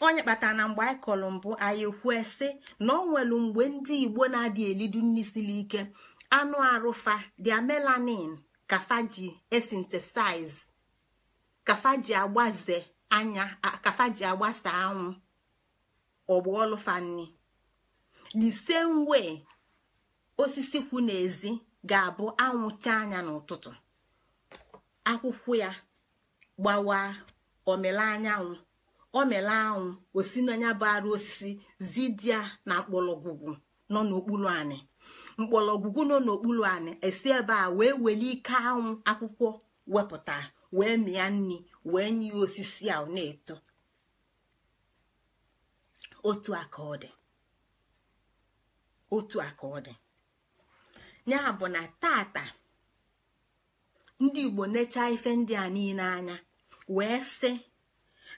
[SPEAKER 1] onye kpatara na mgbe anyị kọrọ mbụ anyị kwue na ọ nwelu mgbe ndị igbo na-adị elidu nri siri ike anụ arụfa dia melanin kafaji esintesiz kafaji agbaze anya kafaji agbasa anwụ ọgbaolufanni the same way osisi kwụ n'ezi ga-abụ anwụcha anya n'ụtụtụ akwụkwọ ya gbawa omela anyanwụ o mere anwụ osi n'anya bụ osisi zidia na mkpọlọgwugwu nọ n'okpuru anị Mkpọlọgwugwu nọ n'okpuru anị esi ebe a wee nwere ike anwụ akwụkwọ wepụta wee mịa nri wee nye osisi a na-eto otu aka ọ otu aka ọ dị ya bụ na tata ndị Igbo nechaa ife ndị a niile anya wee sị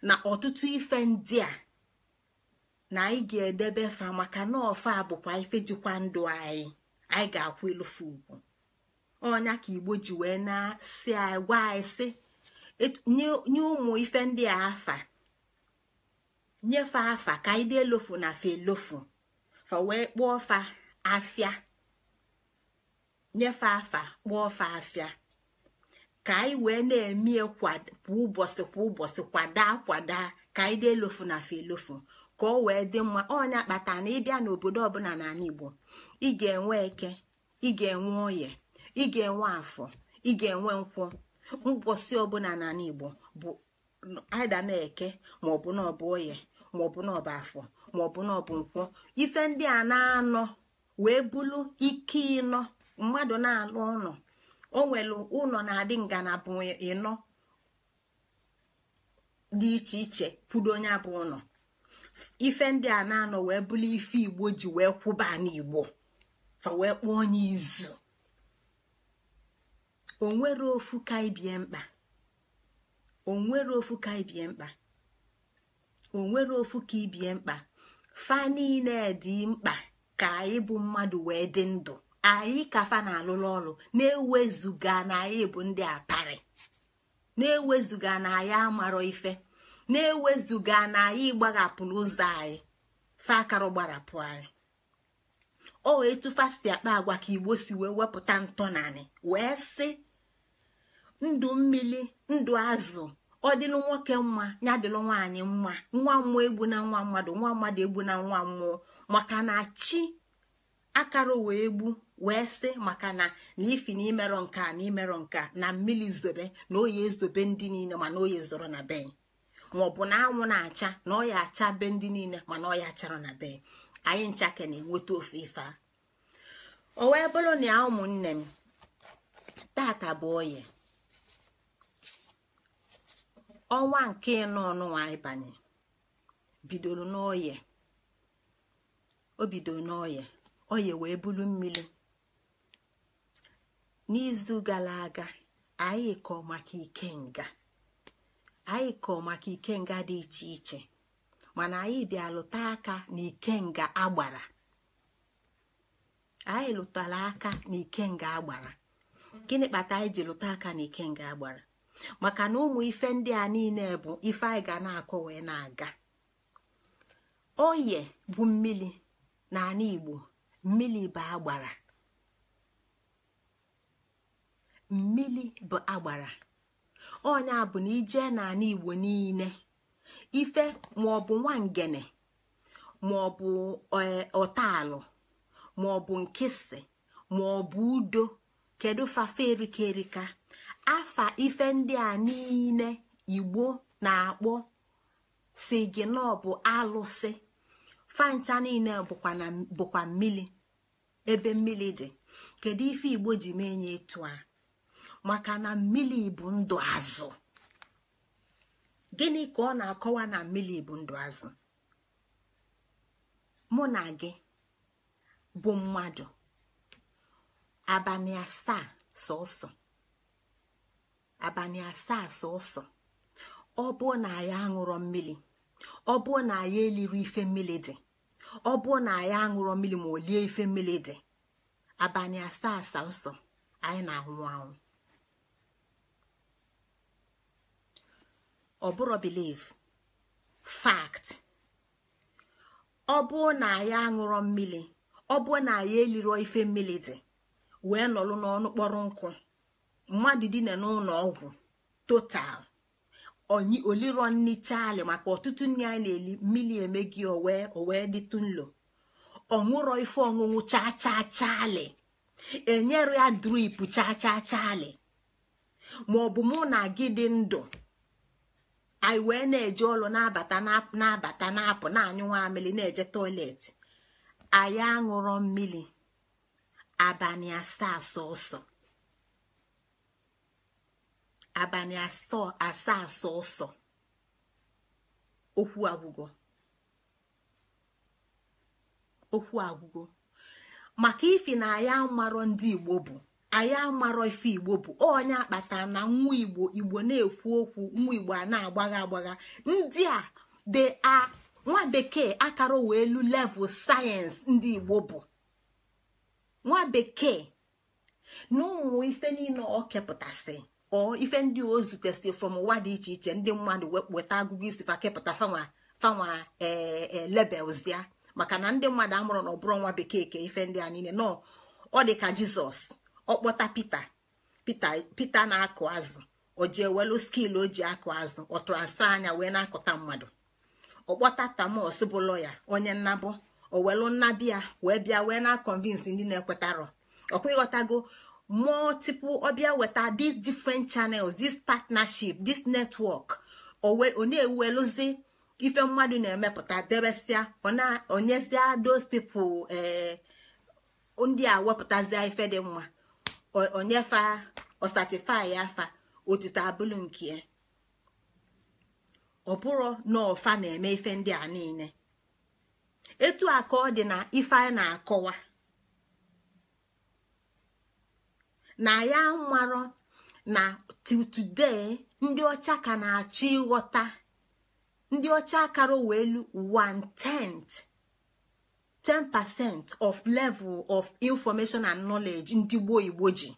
[SPEAKER 1] na ọtụtụ ife ndị a na anyị ga-edebe fa maka na ọfa bụkwa ife jikwa ndụ anyị anyị ga-akwụ elufu ugwu ọnya ka igbo ji wee na-asị anyị gwa anyị sị nye ụmụ ife ndị a afa nyefe afa ka anyị dị elofu na fa elofu fa wee kpụọ fa afịa afa kpụọ fa afịa ka anyị wee na emie kwa ụbọchị kwa ụbọchị kwada kwada ka anyị dị elofu na fe elofu ka ọ wee dị mma onye akpata na ịbịa n'obodo ọbụla n'ala Igbo ị ga-enwe eke ị ga-enwe oye ị ga-enwe afọ ị ga-enwe nkwụ mbosi ọbụla n'ala Igbo bụ aida na eke maọbụ na oye maọbụ na afọ maọbụ na ọbụ nkwụ ife ndị a na-anọ wee bụrụ ike ịnọ mmadụ na-alụ ụlọ o nwere ụlọ na-adị ngalaba ịnọ dị iche iche kwudo onye abụ ụlọ ife ndị a na-anọ wee bụrụ ife igbo ji wee kwụba n'igbo fa wee kpọọ onye izu onwere ofu ka ibie mkpa onwere ofu mkpa ofu ka ibie mkpa fa niile dị mkpa ka anyị mmadụ wee dị ndụ anyị kafa na alụlụ ọrụ na-ewezuga na anyị bụ ndị apari na-ewezuga na anyị amarọ ife na-ewezuga na anyị gbaghapụrụ ụzọ anyị faakarụ gbarapụ anyị o wee tụfasi akpa agwa ka igbo si wee wepụta ntọnanị wee sị ndụ mmiri ndụ azụ ọ nwoke mma ya dịlụ nwaanyị mma nwa mmụọ egbu na nwa mmadụ nwa mmadụ egbu na nwa mmụọ maka na chi akara wee gbu wee sị maka na na ifi na imerọ nke a na imerọ nke a na mmiri zobe na oyi ezobe ndị niile mana oyi zoro na be maọbụ na anwụ na-acha na ọya acha be ndị niile mana ọya achara na be anyị ncha ka na-enweta ofe ife a o wee bụrụ na ya ụmụnne m tata bụ oye ọnwa nke ịnọ ọnụnwa banye bidoro n'oye o bidoro n'oye oye wee bulu mmiri n'izu gara aga anyị kọọ maka ikenga anyị kọọ maka ikenga dị iche iche mana anyị bịa lụta aka na ikenga agbara anyị lụtara aka na ikenga agbara gịnị kpata anyị ji lụta aka na ikenga agbara maka na ụmụ ife ndị a niile bụ ife anyị ga na-akọ wee na-aga oye bụ mmiri na ala igbo mmiri bụ agbara mmili bụ agbara ọnya bụ na ijee n'ala igbo niile ife maọbụ nwangene maọbụ e, ọ maọbụ nkịsị maọbụ udo kedu fafe erika erika afa ife ndị a niile igbo na-akpọ si gị na ọ bụ alụsị fancha niile bụkwa mmili ebe mmili dị kedu ife igbo ji mee nye etu a maka na mmiri bụ ndụ azụ gịnị ka ọ na-akọwa na mmiri bụ ndụ azụ mụ na gị bụ mmadụ abalị asaa sọsọ abalị asaa sọsọ ọ bụ na ya aṅụrọ mmiri ọ bụ na ya eliri ife mmiri dị ọ bụ na ya aṅụrọ mmiri ma o lie ife mmiri dị abalị asaa sọsọ anyị na-anwụ anwụ ọ bụrụ biliv fact ọ bụ na ya aṅụrọ mmiri ọ bụ na ya eliro ife mmiri dị wee nọrọ n'ọnụ kpọrọ nkụ mmadụ dina n'ụlọ ọgwụ total onyi oliro nni chali maka ọtụtụ nri anyị na-eli mmiri emegi owee owee dịtụ nlo ọṅụrọ ife ọṅụṅụ chaa chaa chali enyere ya drip chaachaa chaalị. chali ma ọ bụ mụ na gị dị ndụ anyị wee na-eje ọlụ na-abata na-abata na-apụ na-anyụ nwamili na-eje toileti anyị aṅụrọ mmiri abalị asaa sọsọ abalị asaa sọsọ okwu agwụgo okwu agwụgo maka ifi na anyị amarọ ndị Igbo bụ anyị amarọ ife igbo bụ onye akpata na nwa igbo igbo na-ekwu okwu nwa igbo a na-agbagha agbagha ndị a dị a nwa bekee akara wee elu level sayensị ndị igbo bụ nwa bekee na ụmụ ife niile ọ kepụtasị ọ ife ndị o zutesị from ụwa dị iche iche ndị mmadụ weta agụgụ isi fa kepụta fanwa fanwa ee lebels ya maka na ndị mmadụ amụrụ na ọ bụrụ nwa bekee ka ife ndị a niile nọ ọ dị ka jizọs ọkpọta pita pita pita na-akụ azụ o welu skil o ji akụ azụ ọ tụrasa anya wee na-akụta mmadụ ọkpọta tamos bụ lọya onye nnabụ o welu nnabịa wee bịa wee na-akọnvinsi ndị na-ekwetarọ ọkwa ịghọtago ọbịa weta these different channels this partnership this network ọ na-eweluzi ife mmadụ na-emepụta debesịa onyezie those people ee eh, ndị a wepụtazia ife dị mma onyefa ọsatifi afa otito abụlụ nke ọ bụrụ na ọfa na-eme ife ndị a niile etu a ka ọ dị na ife a na-akọwa na ya marọ na today ndị ọcha ka na-achọ ịghọta ndị ọcha akara wee lu 10% of level of information and knowledge ndị gboo igbo ji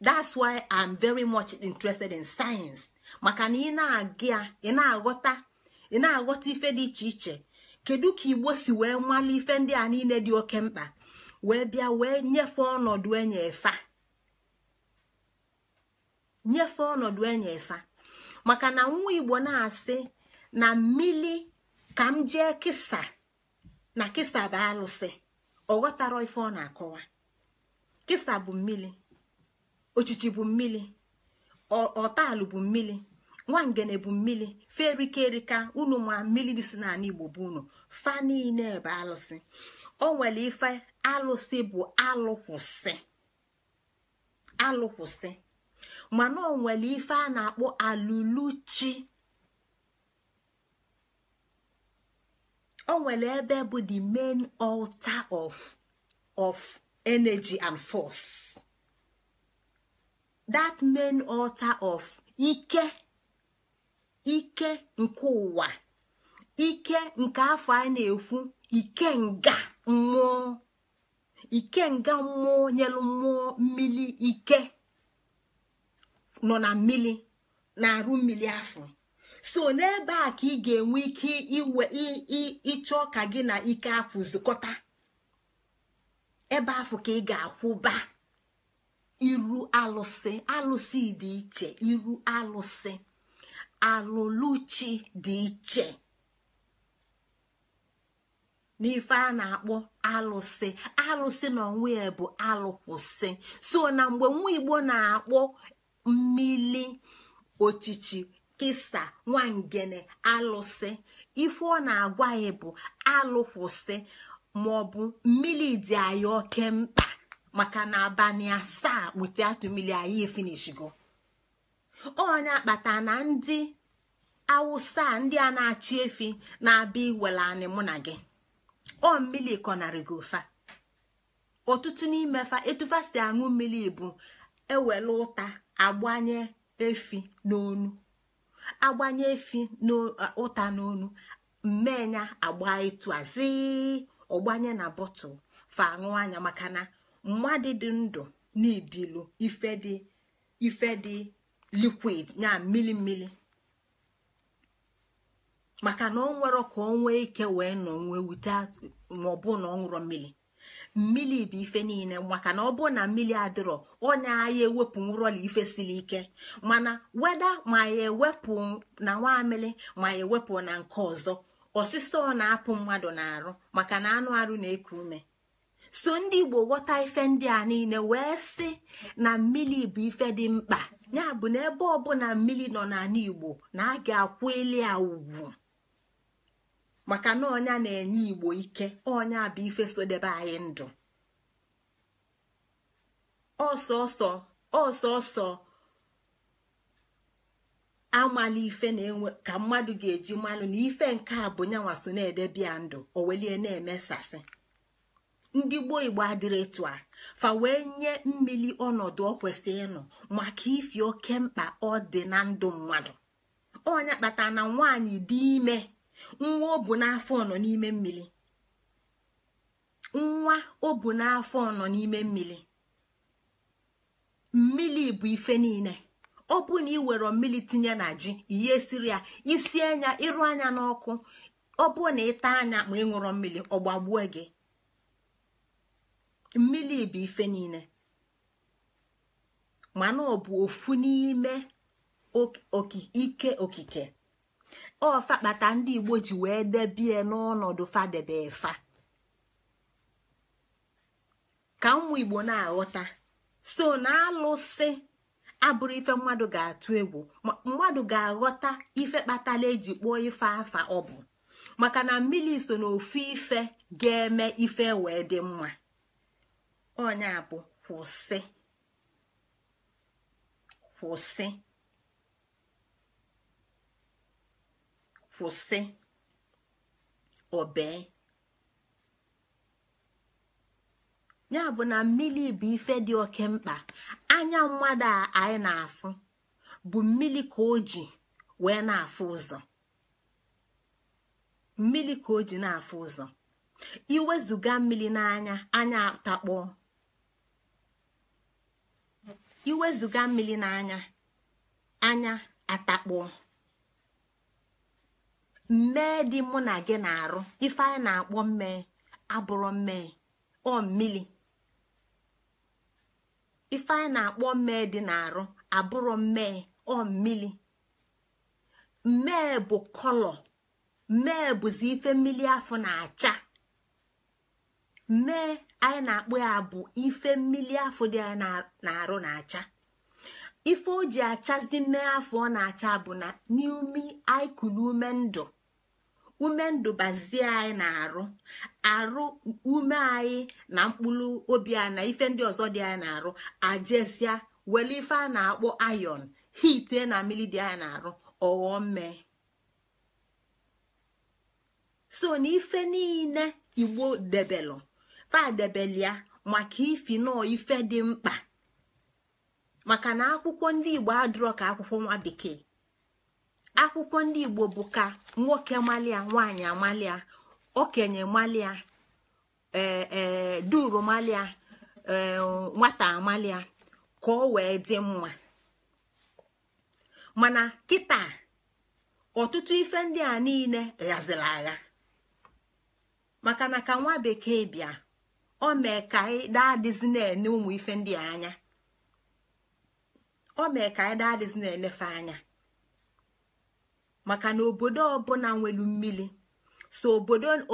[SPEAKER 1] that's why i'm very much interested in science maka na ị na-aghọta ife dị iche iche kedu ka igbo si wee nwale ife ndị a niile dị oke mkpa wee bịa wee nyefe ọnọdụ enye efa efa maka na nwa igbo na-asị na mmili ka m jee kisa na kisa bụ alụsị ọ ghọtara ife ọ na-akọwa kisa bụ mmiri ochichi bụ mmiri ọtalụ bụ mmiri nwangene bụ mmiri ferike erika unu ma mmiri dị si n'ala igbo bụ unu fa niile bụ alụsị o nwere ife alụsị bụ alụkwụsị alụkwụsị mana o nwere ife a na-akpọ aluluchi. o nwere ebe bụ the main altar of of energy and force that main altar of ike ike nke ụwa ike nke afọ a na-ekwu ike nga mmụọ ike nga mmụọ nyelu mmụọ mmiri ike nọ na mmiri na arụ mmiri afọ so n'ebe a ka ị ga-enwe ike iwe ịchọ ka gị na ike afọ zụkọta ebe ahụ ka ị ga-akwụba iru alụsị alụsị dị iche iru alụsị alụluchi dị iche n'ife a na-akpọ alụsị alụsị na onwe ya bụ alụkwụsị so na mgbe nwa igbo na-akpọ mmili ochichi kisa nwangene alụsị ife ọ na-agwa ya bụ alụkwụsị maọbụ mmiri dị anyị oke mkpa maka na abalị asaa atụ mmiri anyị efinishigo onye akpata na ndị awụsa ndị a na-achị efi na-abịa iwele anị mụ na gị ọ mmiri gị ụfa ọtụtụ n'ime fa aṅụ mmiri bụ ewele ụta agbanye efi n'onu agbanye efi n'ụta n'onu mmenya agba ịtụ azi ọgbanye na bọtụl fa aṅụ anya maka na mmadụ dị ndụ n'idilu ife dị ife dị likwid ya mmili mmili maka na ọ nwere ka ọ ike wee nọ nwee wute maọbụ na ọ ṅụrụ mmiri mmiri bụ ife niile maka na ọ bụ na mmiri adịrọ onye anya ewepụ nrọla ife siri ike mana weda ma ya ewepụ na nwamili ma ya ewepụ na nke ọzọ ọ na-apụ mmadụ na-arụ maka na anụ arụ na-eku ume so ndị igbo ghọta ife ndị a niile wee sị na mmiri bụ ife dị mkpa ya bụ na ebe ọbụla mmiri nọ n'ala igbo na a ga-akwụ ili ya ugwu maka na ọnya na-enye igbo ike ọnya bụ ife sodebe anyị ndụ ọsọsọ ọsọsọ amala ife na-enwe ka mmadụ ga-eji mmanụ na ife nke a bụ nyanwa so na-edebia ndụ owelie na-emesasị ndị gboo igbo adịrị etu a fa wee nye mmiri ọnọdụ ọ kwesịrị ịnọ maka ifi oke mkpa ọ dị na ndụ mmadụ ọnya kpata na nwaanyị dị ime nwa o bu n'afọ nọ n'ime mmiri nwa mmiri bụ ife niile ọ bụ na ị were mmiri tinye na ji ihe siri ya isi anya ịrụ anya n'ọkụ ọ bụ na ịta anya ma ị ṅụrụ mmiri ọ gbagbuo gị mmiri bụ ife niile mana ọ bụ ofu n'ime ike okike ọfa kpata ndị igbo ji wee debie n'ọnọdụ fadebe fa ka ụmụ igbo na-aghọta so na alụsị abụrụ ife mmadụ ga-atụ egwu mmadụ ga-aghọta ife kpatala eji kpụọ ife afa ọ bụ maka na mmiri so na ife ga-eme ife wee dị mma onye bụ kwụsị kwụsị kwụsị obee ya bụ na mmiri bụ ife dị oke mkpa anya mmadụ a anyị na-afụ bụ mmiri ka o ji wee na-afụ ụzọ mmiri ka o ji na-afụ ụzọ iwezuga mmiri n'anya anya atakpọọ iwezuga mmiri n'anya anya atakpọọ mmee dị mụ na gị na-arụ ife anyị na-akpọ mmee abụrụ mmee ọ mmili ife anyị na-akpọ mmee dị na-arụ abụrụ mmee ọ mmili mmee bụ kọlọ mmee bụzi ife mmili afọ na-acha mmee anyị na-akpọ ya bụ ife mmili afọ dị anyị na-arụ na-acha ife o ji achazi mmee afọ ọ na-acha bụ na n'ime anyị kụrụ ume ndụ ume ndụ anyị na-arụ arụ ume anyị na mkpụrụ obi anyị na ife ndị ọzọ dị anyị na-arụ ajesia wele ife a na-akpọ ayon hite na mmiri dị anyị na-arụ ọghọọ mme so na ife niile igbo debelụ fadebelia maka ifi nọ ife dị mkpa maka na akwụkwọ ndị igbo adịrọ ka akwụkwọ nwa bekee akwụkwọ ndị igbo bụ ka nwoke malia nwanyị amalia okenye malia ee e, duru malia ee nwata amalia ka ọ wee dị mma mana kịta ọtụtụ ife ndị a niile ghaziri agha maka na ka nwa bekee bịa o mee ka anyị daa na ụmụ ife ndị anya o mee ka anyị daa na-enefe anya maka na obodo ọbụla nwelu mmiri so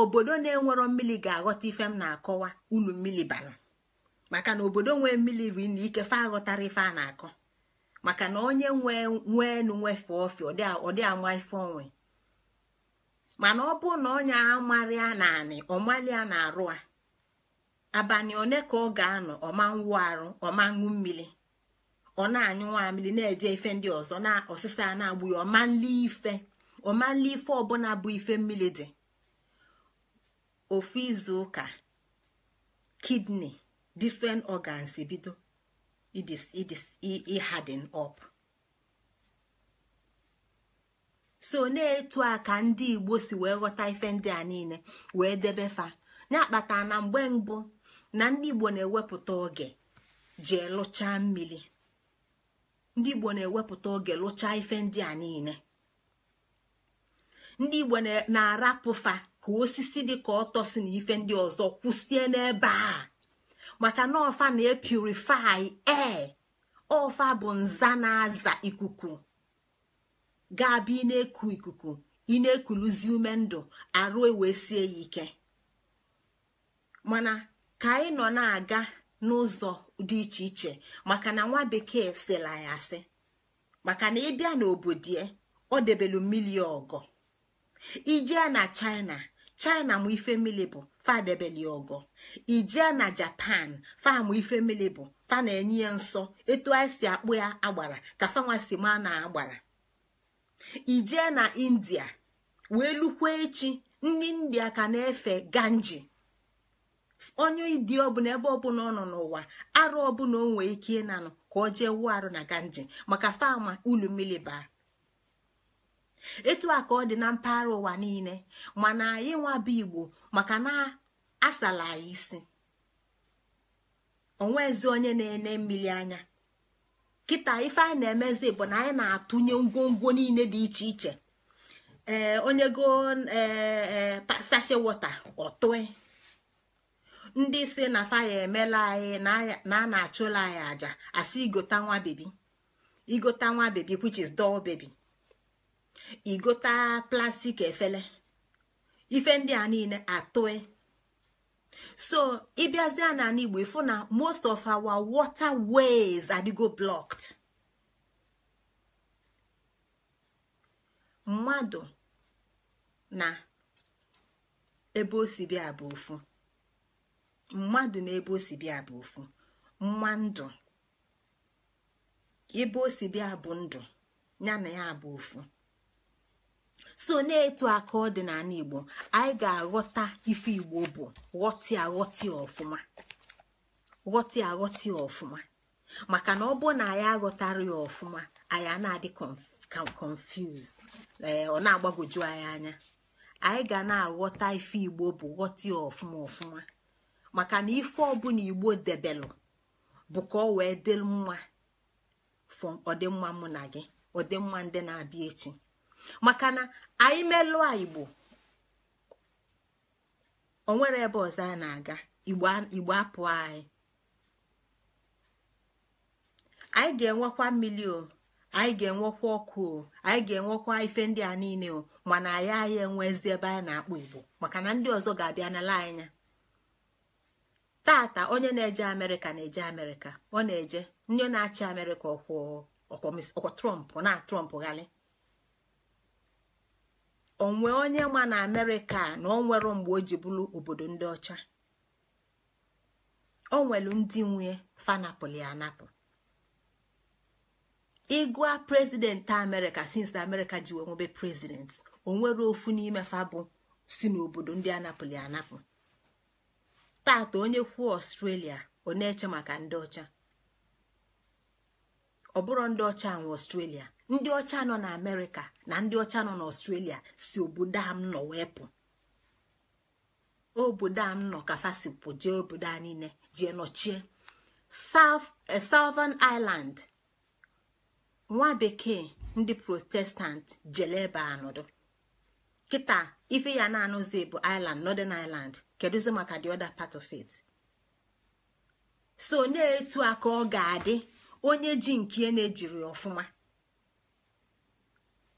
[SPEAKER 1] obodo na-enwerọ mmiri ga-aghọta ife m na-akọwa ulu mmiri bara maka na obodo nwee mmiri ri na ike aghọtara ife a na-akọ maka na onye nwee nweenu nwefe ofe ọdị ama ife onwe mana ọ bụ na onye amarịa na anị ọmalịa na arụ a abanị one ka ọ ga-anọ ọma nwụ arụ ọma ṅụ mmiri ọ na-anyụ nwamili na-eje ife ndị ọzọ na ọsịsa na-agbụ ya ọmanli ife ọmanli ife ọbụla bụ ife mmiri dị ofu izu ụka kidney different organs bido harden up so na-etu aka ndị igbo si wee ghọta ife ndị a niile wee debe fa na-akpata na mgbe mbụ na ndị igbo na-ewepụta oge jee lụchaa mmiri ndị igbo na-ewepụta oge lụchaa ife ndị a niile ndị igbo na-arapụfa ka osisi dị ka ọtọ si na ife ndị ọzọ kwụsie n'ebe a maka na ọfa na-epurifai ee ọfa bụ nza na-aza ikuku ga-abụ ị na-eku ikuku ị na-ekuluzi ume ndụ arụ e wee sie ya ike mana ka anyị nọ na-aga n'ụzọ dị iche iche maka na nwa bekee sịla ya asị maka na ịbịa n'obodo ya ọ debelu milion ọgọ ijee na china china mụ ife mmiri bụ fadebeli ọgọ ijee na japan famụ ife mmiri bụ fa na-enye ya nsọ etu anyị si akpụ ya agbara ka fanwasi ma na agbara ijee na india wee lukwa echi ndị india ka na-efe ganji onye ịdị ọbụla ebe ọbụla ọ nọ n'ụwa arụ ọbụla o ike ịnanụ ka o jee wuo arụ na ganji maka fama ulu mmiri baa etu a ka ọ dị na mpaghara ụwa niile mana anyị nwabụ igbo maka na asala anyị isi onwezi onye na-ene mmiri anya kita ife anyị na-emezi bụ na anyị na-atụnye ngwongwo niile dị iche iche ee onye go ee sashe e, ọtụe ndị si na faya emela anyị na a na-achụla anyị aja asị igota nwa bebi igota nwa bebi which is doll baby igota plastik efele ife ndị a niile atụe so ịbịazie na igbo ịfụ na most of our water ways adịgo blocked mmadụ na ebe o si bịa bụ ofu mmadụ na ebe o bịa bụ ofu mma ndụ ebe o bịa bụ ndụ ya na ya bụ ofu so na-etu aka ọ dị n'ala igbo anyị ga-aghọta ife igbo bụ ghọtị aghọtị ọfụma ghọtị aghọtị ọfụma maka na ọ bụ na anyị aghọtara ya ọfụma anyị na-adị confuse ọ na-agbagwoju anyị anya anyị ga na-aghọta ife igbo bụ ghọtị ọfụma ọfụma maka na ife ọbụla igbo debelụ bụ ka ọ wee dị mma fọ ọdịmma mụ na gị ọdịmma ndị na-abịa echi maka na anyị melụọ igbo onwere ebe ọzọ a na-aga igbo apụ anyị anyị ga-enwekwa mmiri o anyị ga-enwekwa ọkụ o anyị ga-enwekwa ife ndị a niile o mana anyị anyị enwezi ebe anyị na-akpọ igbo maka na ndị ọzọ ga-abịa n'ala anya tata onye na-eje amerịka na-eje amerịka ọ na-eje onye na-achị amerịka ọkwọ na trọmp ghali onwe onye ma na amerịka na ọ nwere mgbe o ji bụrụ obodo ndị ọcha o nwelu ndị nwe fanapụli anapụ ịgụa prezidenti amerịka since amerịka ji wee nwebe prezidenti onwere ofu n'ime fa bụ si n'obodo ndị anapụli anapụ tata onye kwuo ọstrelia ọ na-eche maka ndị ọcha ọ bụrụ ndị ọcha nwe ọstrelia ndị ọcha nọ na amerịka na ndị ọcha nọ n'ọstrelia si obodo a m nọ wee pụ obodo a m nọ ka fasipụ jee obodo a niile jee nọchie eh, southern island nwa bekee ndị protestant jele ebe anọdụ kịta ife ya na-anụzi bụ ireland northern ireland kedụzi maka the other part of it so na-etu aka ọ ga-adị onye ji nke na-ejiri ọfụma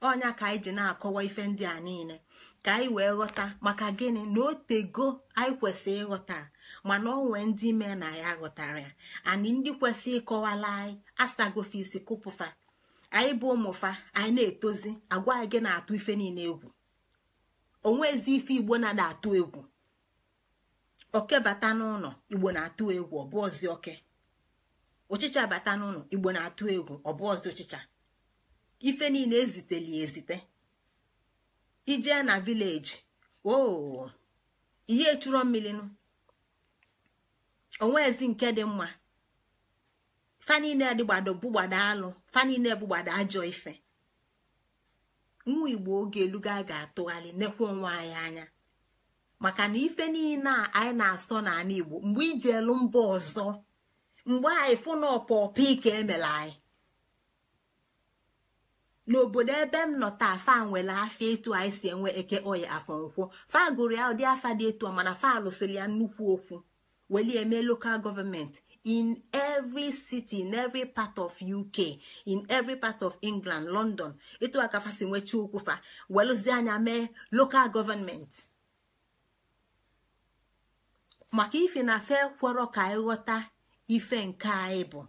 [SPEAKER 1] ọnya ka anyị ji na-akọwa ife ndị a niile ka anyị wee ghọta maka gịnị na otego anyị kwesịrị ịghọta mana ọ nwee ndị ime na ya ghọtara ya anyị ndị kwesịrị ịkọwala anyị asagofe isi kụpụfa anyị bụ ụmụfa anyị na-etozi agwa anyị gị na-atụ ife niile egwu onwezi ife igbo na atụ egwu oke bata n'ụlọ igbo na-atụ egwu ọbụ ọzi oke ụchịcha bata n'ụlọ igbo na-atụ egwu ọbụ ọzi ụchịcha ife niile eziteli ezite ijee na vileji ooo oh, ihe mmiri onwe onwezi nke dị mma fa niile adịgbado bụgbado alụ fa niile bụgbado ajọ ife nwa igbo oge eluga ga-atụgharị nekwa onwe anyị anya maka na ife niile a anyị na-asọ n'ala igbo mgbe ijelu elu mba ọzọ mgbe anyị fụ na ọpọpọ ike emela anyị n'obodo ebe m nọ taa fa nwere afịa etu anyị si enwe eke oyi afọ nkwụ fa gụrụ ya ụdị afa dị etu a mana fa lụsịrị ya nnukwu okwu welie eme lokal gọọmenti in every city in every part of uk in every part of england london ịtụ akafa si nwechi okwufa welụzie anya mee local gọọmenti maka ife na fe kwọrọ ka anyị ife nke anyị bụ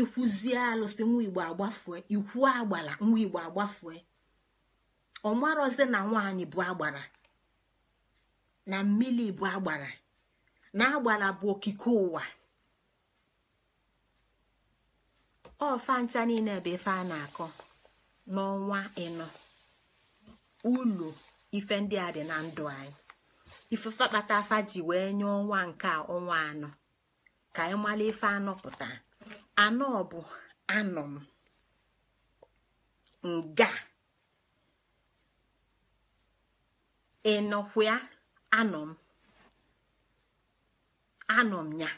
[SPEAKER 1] ikwụzie alụsị nwa igbo agbafue ikwu agbara nwa igbo agbafue ọmarọzi na nwaanyị bụ agbara na mmiri bụ agbara na bụ okike ụwa ọfa ncha niile bụ ife a na-akọ n'ọnwa ịnọ ụlọ ife ndị a dị na ndụ anyị ifefe kpata afa ji wee nye ọnwa nke a ọnwa anọ ka anyị mara ife anọ pụta anọ bụ anọ m nga ịnọkwa anọ m anọ m ya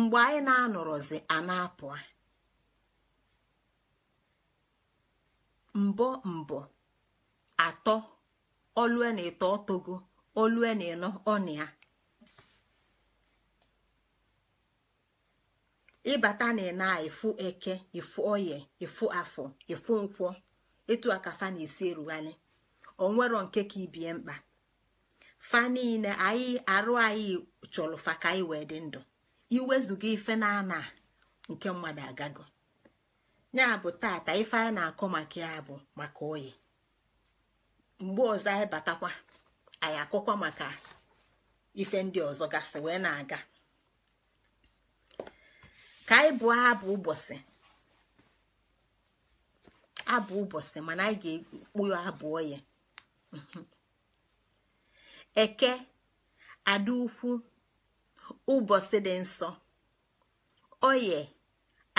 [SPEAKER 1] mgbe anyị na-anọrọzi a na-apụ mbọ mbọ atọ olue na eto ọtogo olue na eno ọnụ ịbata na ịna efu eke efu oye efu afọ efu nkwọ etu akafa na esi erughali onwero nke ka ibie mkpa fa niile anyị arụ anyị chọrọ fa ka anyị wee dị ndụ iwezuga ife na-ana nke mmadụ agago ya bụ tata ife anyị na-akọ maka ya bụ maka oyi mgbe ọzọ anyị batakwa anyị akọkwa maka ife ndị ọzọ gasị wee na-aga ka anyị bụọ abụ ụbọchị abụ ụbọchị mana anyị ga-ekpu abụọ oyi eke adị ukwu ụbọchị dị nsọ oye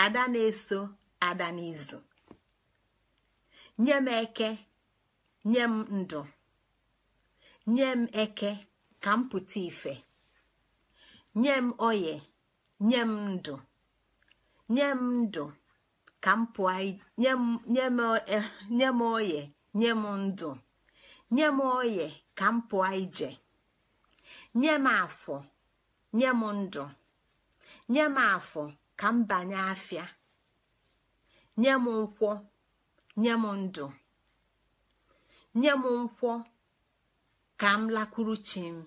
[SPEAKER 1] ada na-eso ada n'izu nye m eke nye m ndụ nye m eke ka m pụta ife nye m oye nye m ndụ nye m ndụ ka m pụọ eh, nye m oye nye m ndụ nye m oye ka m pụọ ije nye m afọ nye m ndụ nye m afọ ka m banye afịa nye m nkwọ nye m ndụ nye m nkwọ ka m lakwuru chi m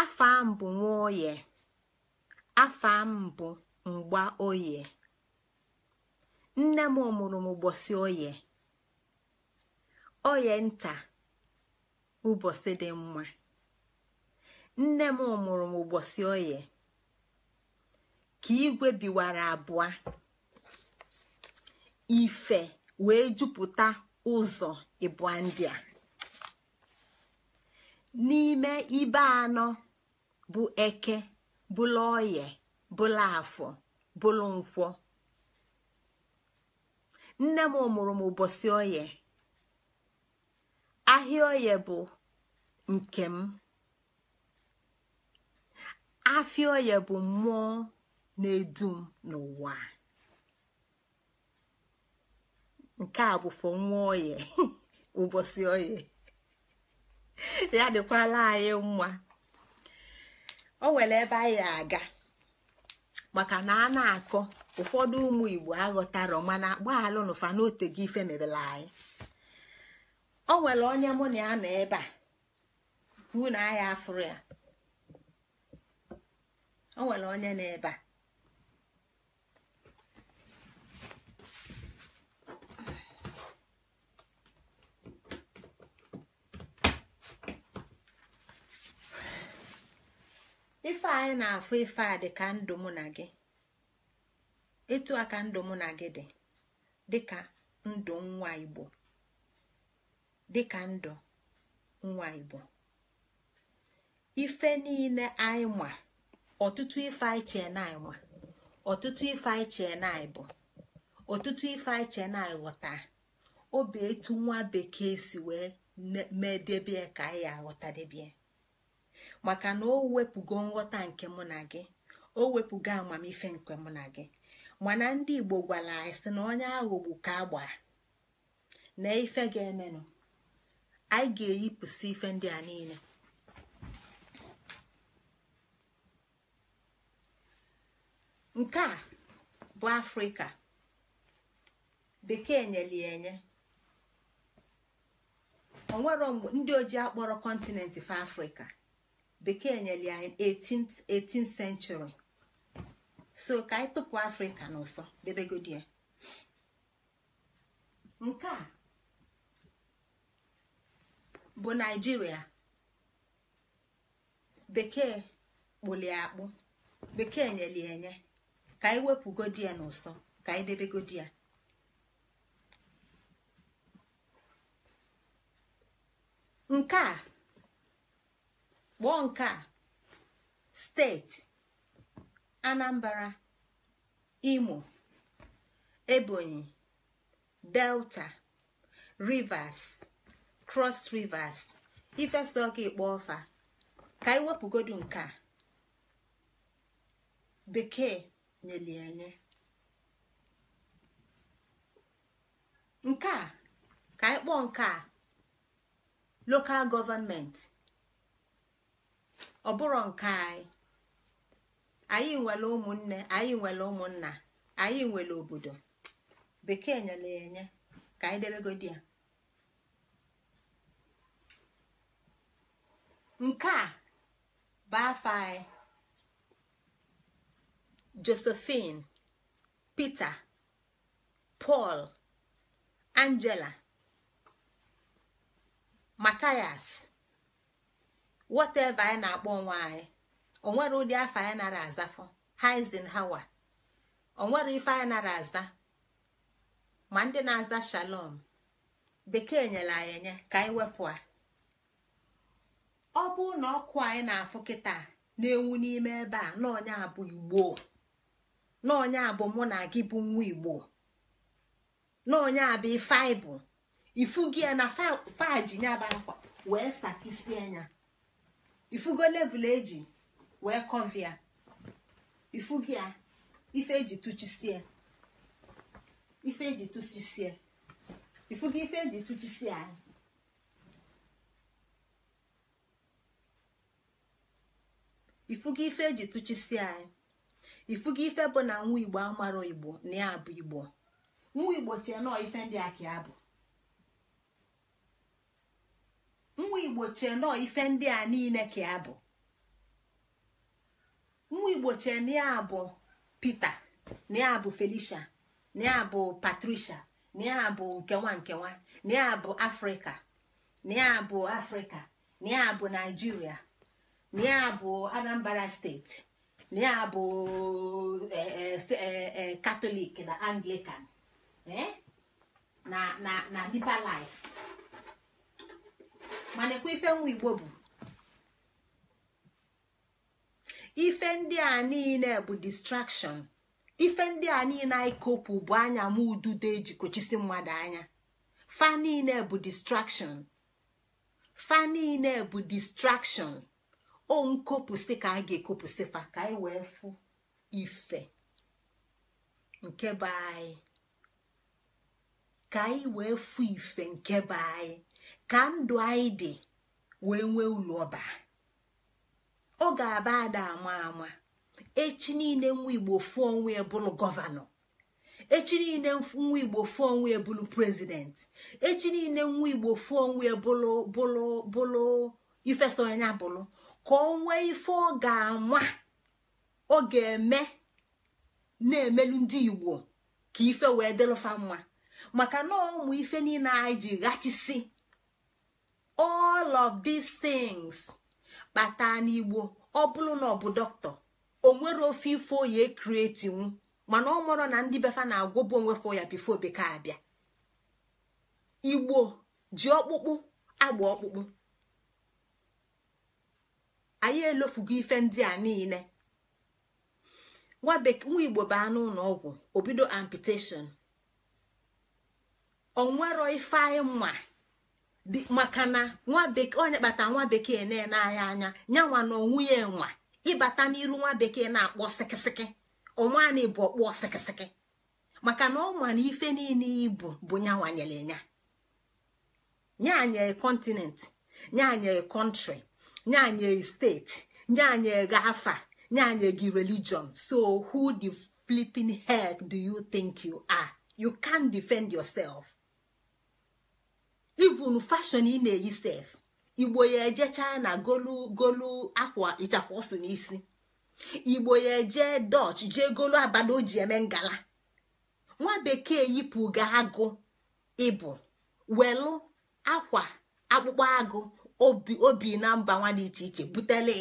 [SPEAKER 1] afọ m bụ nwa oye afọ m bụ mgba oye nne m mụrụ m ụbọchị oye oye nta ụbọchị dị mma nne m mụrụ m ụbọchị oye ka igwe biwara abụọ ife wee jupụta ụzọ ịbụa ndị a n'ime ibe anọ bụ eke bụla oye bụla afọ bụla nkwọ nne m mụrụ m ụbọchị oye ahịa oye bụ nke m afịa oye bụ mmụọ na edum m n'ụwa nke a bụ fọ oye *laughs* ụbọchị oye ya dịkwala anyị mma o nwere ebe anyị aga maka na a na-akọ ụfọdụ ụmụ igbo aghọtara mana gbaalụnụfa n'otego ife mebere anyị o nwere onye mụ na ya nọ ebe a kwuo na agha afụrụ ya o nwere onye nọ ebe a ife anyị na-afụ ife a dị ka ndụ mụ na gị etu a ka ndụ mụ na gị dị dịka ndụ nwa igbo dịka ndụ nwa igbo ife niile anyị ma ọtụtụ ife anyị na anyị ma ọtụtụ ife anyị na anyị bụ ọtụtụ ife anyị chee na anyị ghọta obi etu nwa bekee si wee mee debie ka anyị aghọta debie maka na o wepụgo nghọta nke mụ na gị o wepụgo amamife nke mụ na gị mana ndị igbo gwara anyị sị na onye aghọgbu ka agba na ife ga-emenụ anyị ga-eyipụsị ife ndị a niile nke a bụ afrịka bekee nyeli enye onwero mgbe ndị oji akpọrọ kọntinent fa afrịka bekee nyeli anyị 18th century so ka anyị tụpụ afrịka n'ụsọ debegodi ya nke a bụ naijiria bekee kpụlie akpụ bekee nyeli enye ka anyị wepụgodi ya n'ụsọ ka anyị debegodi ya nke a kpọọ nke a steeti anambra imo ebonyi delta rivers cross rivers ifesa ọka ịkpọ ọfa ka anyị wepụgodu nke a bekee nyeli enye. nke a ka anyị kpọọ nke a local government ọ bụrọ nke anyị anyị nwere ụmụnne anyị nwere ụmụnna anyị nwere obodo bekee nyere enye ka anyị debegodi ya nke a bụ afa anyị josephine peter paul angela matias whatever anyị na-akpọ onwe anyị onwere ụdị afọ anyị nara azafọ Eisenhower onwere ife anyị nara aza ma ndị na-aza shalom bekee nyere anyị enye ka anyị wepụ a ọ bụrụ na ọkụ anyị na-afụ kịta na-enwu n'ime ebe a n'ọnya abụ igbo n'ọnya abụ mụ na gị bụ nwa igbo n'ọnya abụ ife bụ, ifu gị na faji nyaba akwa wee sachisie anya ifugo level eji wee kọvia ifugi ya ife eji tụchisie ife eji tụchisie ifugo ife eji tụchisie anyị ifugo ife eji tụchisi anyị ifugo ife bụ na nwa igbo amaro igbo na ya bụ igbo nwa igbo chie nọọ ife ndị a ka bụ nwa igbo chie nọọ ife ndị a niile ka ya bụ nwa igbo chie na ya bụ Peter na ya bụ Felicia na ya bụ Patricia na ya bụ nkewa nkewa na ya bụ Afrịka na ya bụ Afrịka na ya bụ Naijiria Eh, eh, eh, na ya bụ Anambra steeti na ya bụ katọlik na anglikan na Deeper Life mana ekwe ife nwa igbo bụ ife ndị a niile bụ distraction ife ndị a niile anyị kopụ bụ anya m ududo ejikochisi mmadụ anya fa niile bụ distraction fa niile bụ distraction o nkopụsị ka a ga-ekopụsị fa ka anyị e wee fụ ife nke be anyị ka anyị e wee fụ ife nke be anyị ka ndụ anyị dị wee nwee ulo ọba ọ ga-aba ada ama ama echi niile nwa igbo fụọ onwe ya e bụrụ gọvanọ echi niile nwa igbo fụọ onwe ya bụrụ prezident echi niile nwa igbo fụọ onwe ya bụrụ bụrụ bụrụ ifesonye bụrụ ka ọ nwee ife ọ ga-anwa ọ ga-eme na-emelu ndị igbo ka ife wee dịlụfa mma maka na ụmụ ife niile anyị ji ghachisi all of these things kpata n'igbo ọ bụrụ na ọ bụ dọkịta o nwere ofe ifo ya kretinwu mana ọ mụrụ na ndị befa na-agwọbụ onwe ya bifo bekee abịa igbo ji ọkpụkpụ agba ọkpụkpụ anyị elofugo ife ndị a niile nwa igbo anụ ụlọ ọgwụ obido amputation onwero ife anyị mma maka na nwa bekee onye kpata nwa bekee na-enanya anya nyanwa na onwunye ya enwa ịbata n'iru nwa bekee na-akpọ sikisiki na bụ ọkpọ sikisiki maka na ọ na ife niile ibu bụ nyere nya nyanye kontinent nyanye kọntrị nye anyị steeti nye anyị ego afa nye anyị gị religion so who the flipping heck do you think you are you can't defend yourself even fashion ị na-eyi sef igbo ya eje china golu golu akwa ịchafụ ọsụ n'isi igbo ya eje dutch jee golu abada o ji eme ngala nwa bekee yipụ ga agụ ịbụ welu akwa akpụkpọ agụ obi na mba nwa dị iche iche butele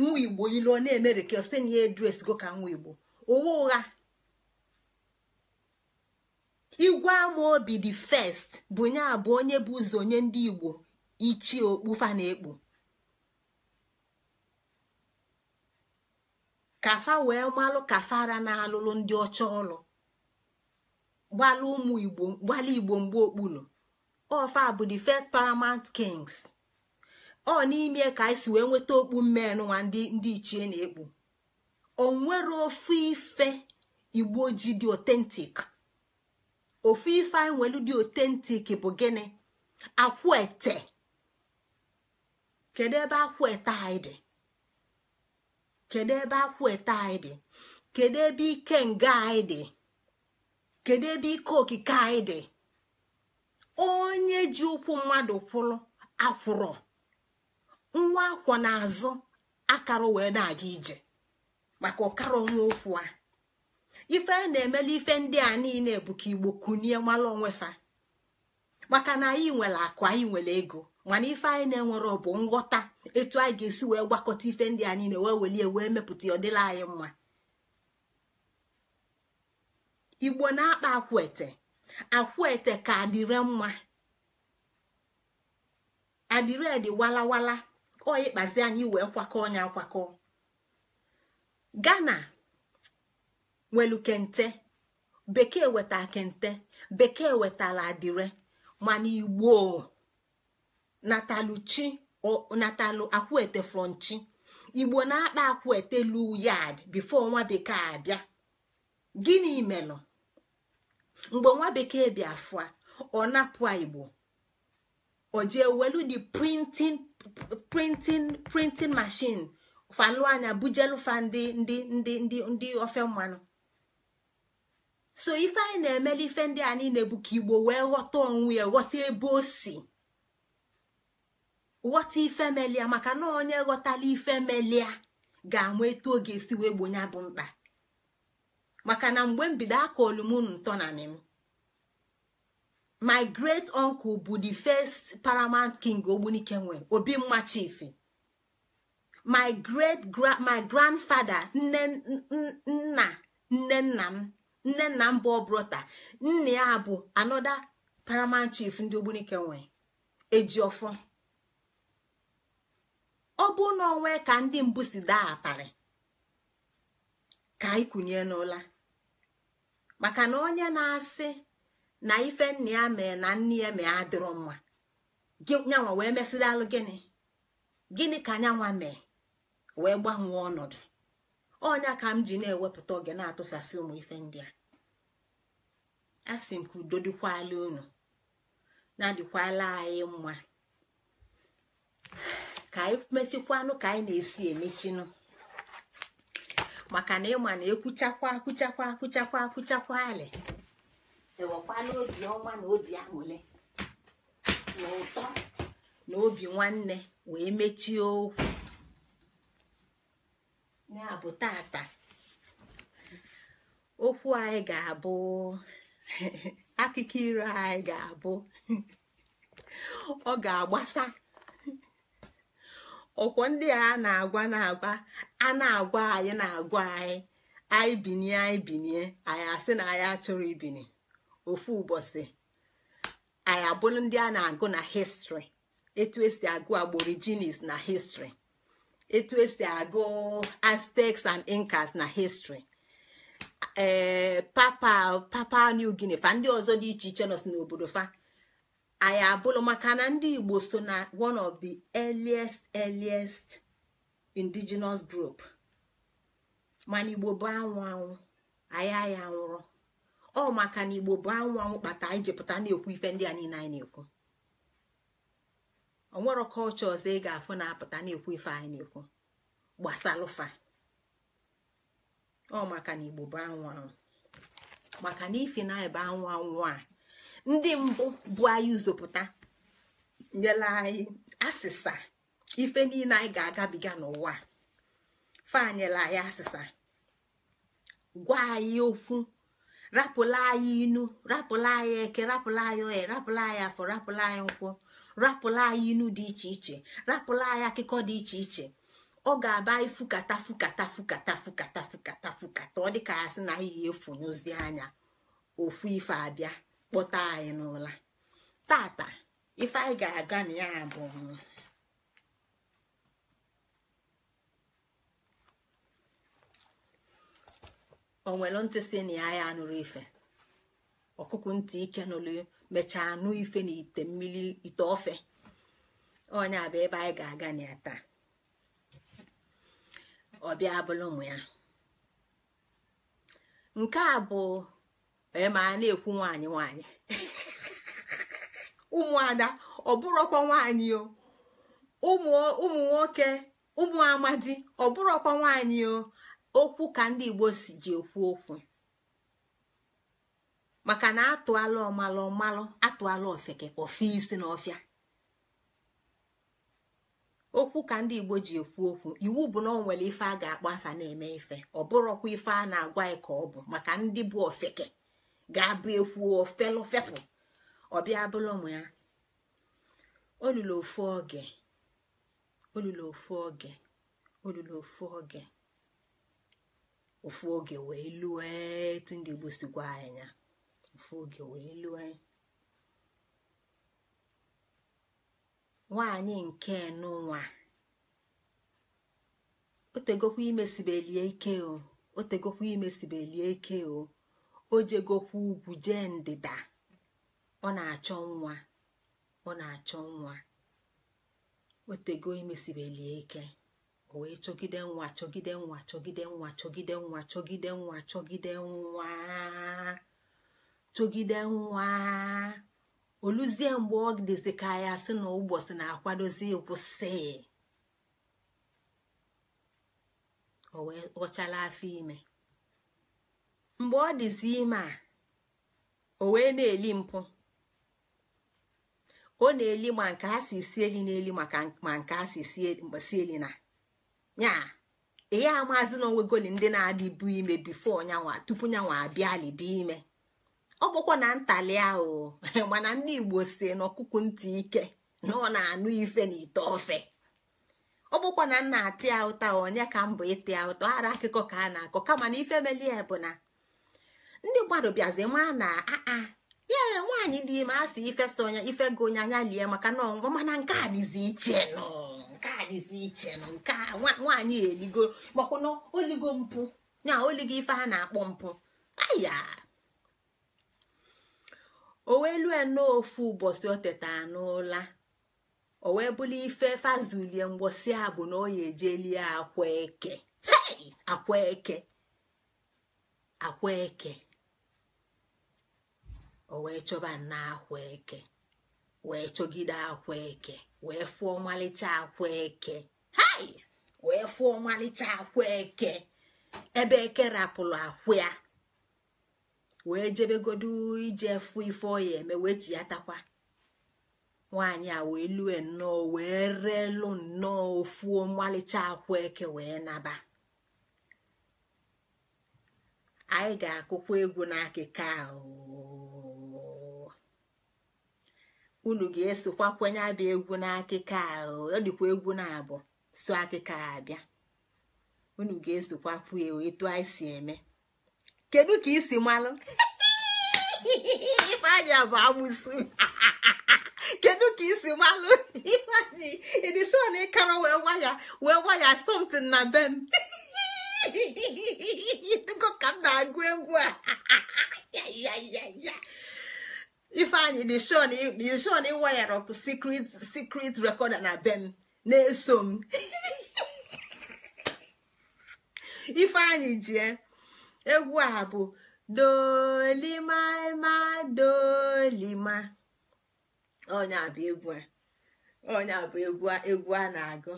[SPEAKER 1] nwa igbo ilu na-emere ka site na ya edres go ka nwa igbo ụgha ụgha igwe ama obi dị fest bụ nye abụ onye bụ ụzọ onye ndị igbo ichie fa na-ekpu kafa wee malụ kafara na-alụlụ ndị ọcha ọlụ gbalụ ụmụ igbo gbalụ igbo mgbe okpulu ofa bụ the first paramount kings ọ n'ime ka anyị si wee nweta okpu mmenụ nwa ndị ichie na-ekpu nwere ofu ife igbo ji dị otentik ofu ife anyị nwelu dị otentik bụ gịnị ete. kedu ebe akwụete anyị dị kedu ebe akwụete anyị dị kedu ebe ike nga anyị dị kedu ebe ike okike anyị dị onye ji ụkwụ mmadụ kwụrụ akwụrụ nwa akwọ n'azụ akara wee na-aga ije maka ụkara ọnwa okwu a ife na-emela ife ndị a niile bụ igbo kunie mmalụ onwefa maka na anyị nwere akụ anyị nwere ego mana ife anyị na-enwere ọ bụ nghọta etu anyị ga-esi wee gwakọta ife ndị a niile wee welie wee mepụta ọdịla anyị mma igbo na-akpa akwete akwete ka adịre mma adịre dị walawala ọ ịkpazi anyị wee kwakọ onye akwakọ Ghana nwelu kente bekee weta kente bekee wetala adire mana igbo natalụ chi natalụ akwete chi igbo na-akpa akwete lu yad bifo nwa bekee abịa gịnị melụ mgbe nwa bekee bịa fụa ọ napụ igbo ojie welu the printing printing printin mashin falụ anya bujelufa ndị ndị ndị ndị ndị ofe mmanụ so ife anyị na emele ife ndị a niile bụ ka igbo wee ghọta onwe ghọta ebe o si ghọta ife melia maka na onye ghọtala ife melia ga-ama etu oge esi wee gbonye bụ mkpa maka na mgbe mbido aka olumunu ntọnanị m my great uncle bụ the first paramount king ogbunike nwe obi mma chifi my great my grandfather nne nna nne nna m nne nna m bụ obrota nne ya bụ another paramount chief ndị ogbunike nwe ejiofọ ọ bụ na onwe ka ndị mbụ si daa aparị ka ịkụnye n'ụla maka na onye na-asị na ife nna ya mee na nne ya mee adịrọ mma nyanwa wee mesịrị alụ gịnị gịnị ka nyanwa mee wee gbanwee ọnọdụ ọnya ka m ji na-ewepụta oge na-atụsasị ụmụ ife ndị a asị m ka udo dịkwala unu na-adịkwala anyị mma ka anyị mechikwanụ ka anyị na-esi emechinụ maka na ịma na ekwuchakwa akwụchakwa akwụchakwa akwụchakwa alị enwekwana obi ọma na obi aṅụle na ụtọ na obi nwanne wee mechie okwu ya bụ tata okwu anyị ga-abụ akụkọ iro anyị ga-abụ ọ ga-agbasa ọkwọ ndị a na-agwa na-agwa a na-agwa anyị na-agwa anyị anyị binie anyị binie anyị asị na anyị achọrọ ibini ofu ụbọchị anyị abụrụ ndị a na-agụ na histri etu esi agụ aborigines na histri etu esi agụ aztecs and incas na histri ee eh, papa papa new guinea fa ndị ọzọ dị iche iche nọ si n'obodo fa anyị abụrụ maka na ndị igbo so na one of the earliest earliest indigenous group mana igbo bụ anwụ anwụ anyị anyị anwụrụ ọ maka na igbo bụ anwụ anwụ kpata anyị ji pụta na-ekwu ife ndị a niile anyị na-ekwu onwero kọlcha ọzọ ị ga-afụ na-apụta na-ekwu ife anyị na-ekwu gbasalụfa ọ maka na igbo bụ anwụ anwụ maka na ife na ebe anwụ anwụ a ndị mbụ bụ anyị zụpụta nyela anyị asịsa ife niile anyị ga-agabiga n'ụwa nyela anyị asịsa gwa anyị okwu rapụla anyị inu rapụla anyị eke rapụla anyị ohe rapụla anyị afọ rapụla anyị nkwụ rapụla anyị inu dị iche iche rapụla anyị akụkọ dị iche iche ọ ga-aba anyị fukata fukata fukata fukata fukata fukata ọ dịka ya sị na anyị efunyụzi anya ofu ife abịa kpọta anyị n'ụla tata ife anyị ga-aga na ya bụ onwere ntị si na ya ya anụrụ ife ọkụkụ ntị ike nụrụ mechaa anụ ife na ite mmiri ite ofe onye bụ ebe anyị ga-aga na ya taa ọbịa abụla ụmụ ya nke a bụ e ma na-ekwu nwanyị nwanyị *laughs* ụmụada ọ bụrụkwa nwanyị ụmụ nwoke ụmụ amadi ọ nwanyị o okwu ka ndị igbo si ji ekwu okwu maka na atụala ọmalụ ọmalụ atụala ofeke ofe isi na ofia okwu ka ndị igbo ji ekwu okwu iwu bụ na ọ nwere ife a ga-akpọ afa na-eme ife ọ bụrọkwa ife a na-agwa anyị ka ọ bụ maka ndị bụ ofeke ga-abụ ekwu ofelofepụ ọbịa bụla ụmụ ya olulu ofu oge olulu ofu oge olulu ofu oge ofu oge wee lue etu ndị Igbo sikwa anya ofu oge wee lue nwaanyị nke nụnwa otegokwa imesibelie ike o otegokwa imesibelie ike o o jegokwa ugwu jee ndịda ọ na-achọ nwa ọ na-achọ nwa otego imesibelie ike wee chọgide nwa chọgide nwa chọgide nwa chọgide nwa chọgide nwa chọgide nwa chọgide nwa oluzie mgbe ọ dịzi ka ya sị na ụbọchị na-akwadozi kwụsị o afọ ime mgbe ọ dịzi ime a o wee na-eli mpụ ọ na-eli ma nke a si si eli na-eli maka ma nke a si si eli na nya ihe a maazi na onwegoli ndị na-adị bụ ime bifo nyanwa tupu nyanwa abịali dị ime ọ bụkwa na ntali ahụ *laughs* mana ndị igbo si n'ọkụkụ ntị ike na ọ na-anụ ife na ite ofe ọ bụkwa na nna ati ya ụta onye ka mbụ ịtị ya ụta ara akụkọ ka a na-akọ kama na ife melie bụ na ndị mmadụ bịazi maa na aa ah, ah, ya nwaanyị dị ime a ife so ife gị onye anya lie maka na ọnwụ mana nke a dịzi iche nọọ nke a dịzi iche nọ nke a nwaanyị eligo oligo mpụ na oligo ife a na-akpọ mpụ aya o wee lue ụbọchị oteta o wee ife fazulie mgbosi a bụ na oya ejelie eke chọba nna akwa eke wee fụọ ọmalịcha akwa eke hai wee fụọ ọmalịcha akwa eke ebe eke rapụrụ akwụ ya wee jebegodu ije fụ ife ọ ya eme wee ji ya takwa nwaanyị a wee lue nnọọ wee reelu nnọọ ofu ọmalịcha akwụ eke wee naba anyị ga-akụkwa egwu n'akụkụ ahụ unu ga-esokwa kwenye abịa egwu n'akịka ọ dịkwa egwu na-abụ so akịka abịa unu ga-esokwa kwuo etu anyị si eme kedu ka isi malụ ifeanya bụ agbụsụ kedu ka isi malụ ifeanyị edishon ịkara wee waya wee waya somtin na be m ka m na-agụ egwu a *laughs* ya ya ya ya. ifeanyị dị shon iwayar secret secret recorder na bem na-eso m ifeanyị jie egwu a bụ dolima dolima onye abụ egwu a onye bụ egwu egwu a na-agụ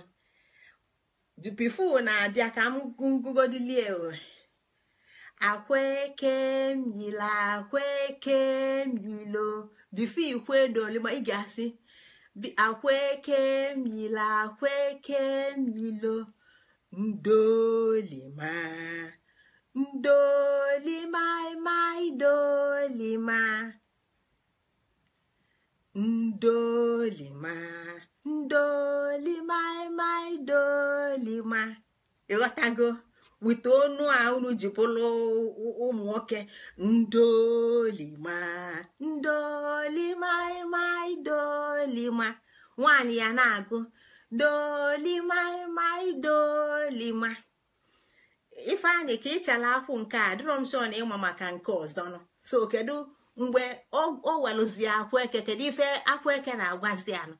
[SPEAKER 1] dupifu na-abịa ka m ngụgodilie akwaekemyilo akwaekemyilo bifo ikwedooli ma ị ga-asị akwaekemyilo akwaekemyilo ndolima ndolimaịmaịdolima ndolima ndolimaịmaịdolima ịghọtago weta onu a unu ji bụrụ ụmụ nwoke ndolima ndolima mai dolima nwaanyị ya na-agụ dolima mai dolima ifeanyị ka ịchala akwụ nke a dịrọ m sọ na ịma maka nke ọzọ so kedu mgbe o welụzi eke kedu ife eke na-agwazi anụ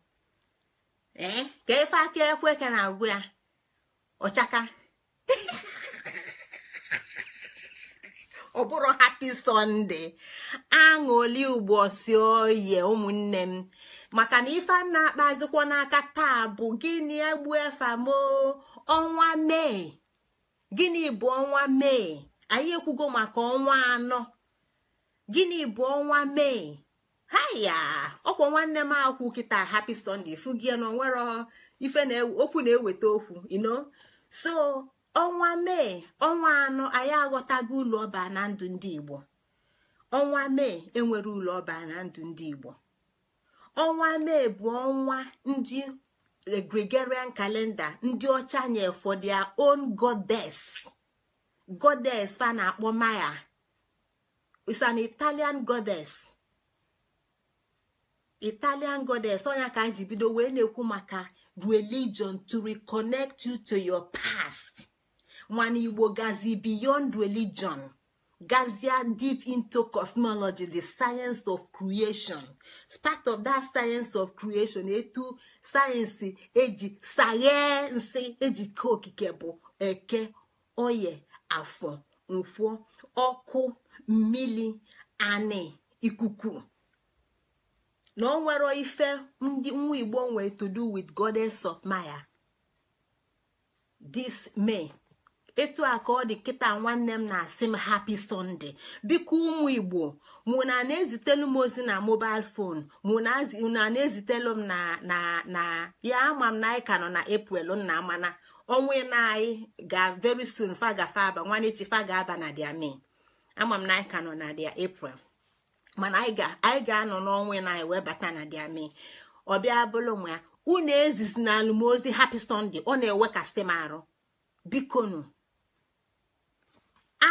[SPEAKER 1] ee ka ife aka eke na-agwụ ya ọchaka *laughs* ọ bụrụ hapi sọnde aṅụli ugbo si oye ụmụnne m maka na ife na-akpazikwa n'aka taa bụ gịnị egbu efamo ọnwa mee gịnị bụ ọnwa mee anyị ekwugo maka ọnwa anọ gịnị bụ ọnwa mee haya ọkwa nwanne m akwụ kịta hapi sọnde fugie na onwere na-eweta okwu ino so ọnwa mee ọnwa anọ anyị aghọtago ụlọ ọba na ndụ ndị igbo ọnwa mee enwere ụlọ ọba na ndụ ndị igbo ọnwa mee bụ ọnwa ndị eh, gregorian kalenda ndị ọcha nye for their own goddess goddess fa na-akpọ maya is an italian goddess italian goddess onya ka anyị ji bido wee na-ekwu maka religion to reconnect you to your past mana igbo gazi beyond religion gazia deep into cosmology the science of creation part of that science of creation etu sayensị eji sayensị eji okike bụ eke oye afọ nkwọ ọkụ mmiri anị ikuku na ọ nwere ife ndị nwa igbo nwere to do with goddess of maya this may etu a ka ọ dị kịta nwanne m na-asị m hapi sọnde biko ụmụ igbo mụ na na-ezitelu m ozi na mobil fon mụ na na-ezitelu m na ya ama m na anyị ka nọ na eprel nna amana ọnwa na anyị ga veri soon fagafe aba nwanechi fagaba na dia me ama m na anyị ka nọ na dia eprel mana anyị ga-anọ n'ọnwa na anyị wee bata na dia me ọ bịa bụrụ nwa ya unu ezizi na alụmozi hapi sọnde ọ na-ewekasị m arụ bikonu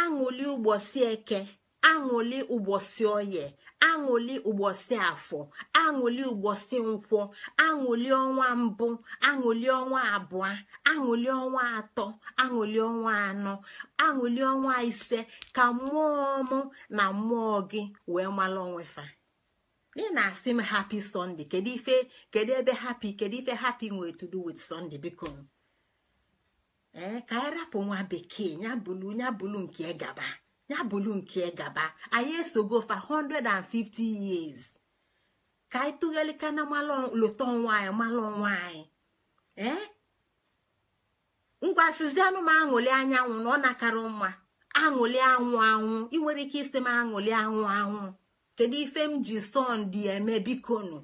[SPEAKER 1] aṅụli ụgbọsị eke aṅụli ụgbọsị oye aṅụli ụgbọsị afọ aṅụli ụgbọsị nkwọ aṅụli ọnwa mbụ aṅụli ọnwa abụọ aṅụli ọnwa atọ aṅụli ọnwa anọ aṅụli ọnwa ise ka mmụọ mụ na mmụọ gị wee mara onwefa ị na-asị m hapi sọnde kedu ife kedu ebe hapi kedu ife hapi nwee to do sọnde biko ee eh, ka anyị rapụ nwa bekee ya bụlu nke gaba ya nke gaba anyị esogo fa 150 years ka anyị tụgharịka na lota ọnwa anyị mala ọnwa anyị ee eh? ngwasizi anụ m aṅụli anyanwụ na ọ nakara mma aṅụli anwụ anwụ ị nwere ike isi m aṅụli anwụ anwụ kedu ife m ji sọndị eme bikonu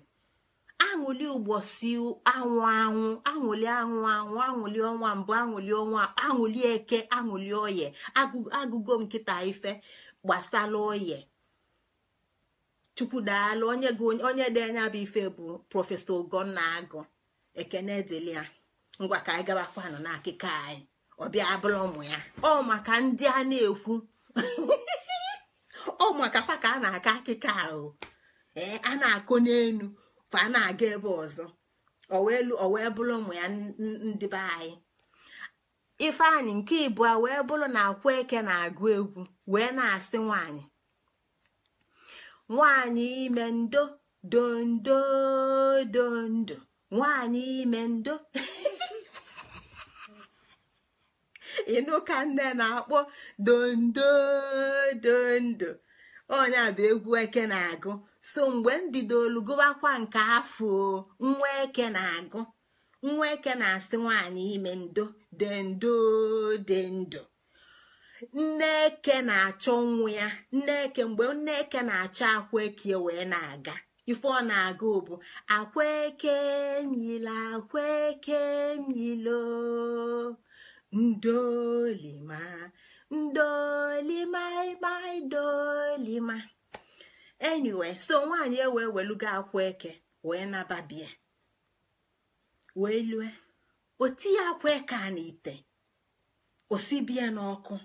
[SPEAKER 1] aṅụli ụgbọsi anwụ anwụ aṅụli anwụ anwụ aṅụli ọnwa mbụ aṅụli ọnwa aṅụli eke aṅụli oye agụgo nkịta ife gbasala oye chukwudaalụ onye onye dị anya bụ ife bụ prọfesọ ogonna agụ ekene dịlia ngwa ka anyị gabakwanụ n'akụkọ anyị
[SPEAKER 2] ọbịa abụrụ ụmụ
[SPEAKER 1] ya ọ maka ndị a na-ekwu *laughs* ọ maka fa ka a na akọ akụkọ ahụ ee a na akọ n'elu fa a na-aga ebe ọzọ ọ wee bụrụ ụmụ ya ndị be anyị ifeanyị nke ịbụa wee bụrụ na akwa eke na-agụ egwu wee na-asị nwanyị nwanyị ime ndo dondo dondo nwanyị ime ndo *laughs* ịnụ ka nne na-akpọ dondo dondo onye bụ egwu eke na-agụ so mgbe m bidolu gụbakwa nke afọ nwa eke na-agụ nwa eke na-asị nwaanyị ime ndo dendo dendo nne eke na-achọ nwa ya nne mgbe nne eke na-achọ akwa eke e wee na-aga ife ọ na-aga bụ akwa eke mila akwa eke milo ndolima ndolima ma ndolima enyiwe so nwaanyị e wee weluga akwụ eke wee nababie wee lue o tinye akwa eke a n'ite osibie n'ọkụ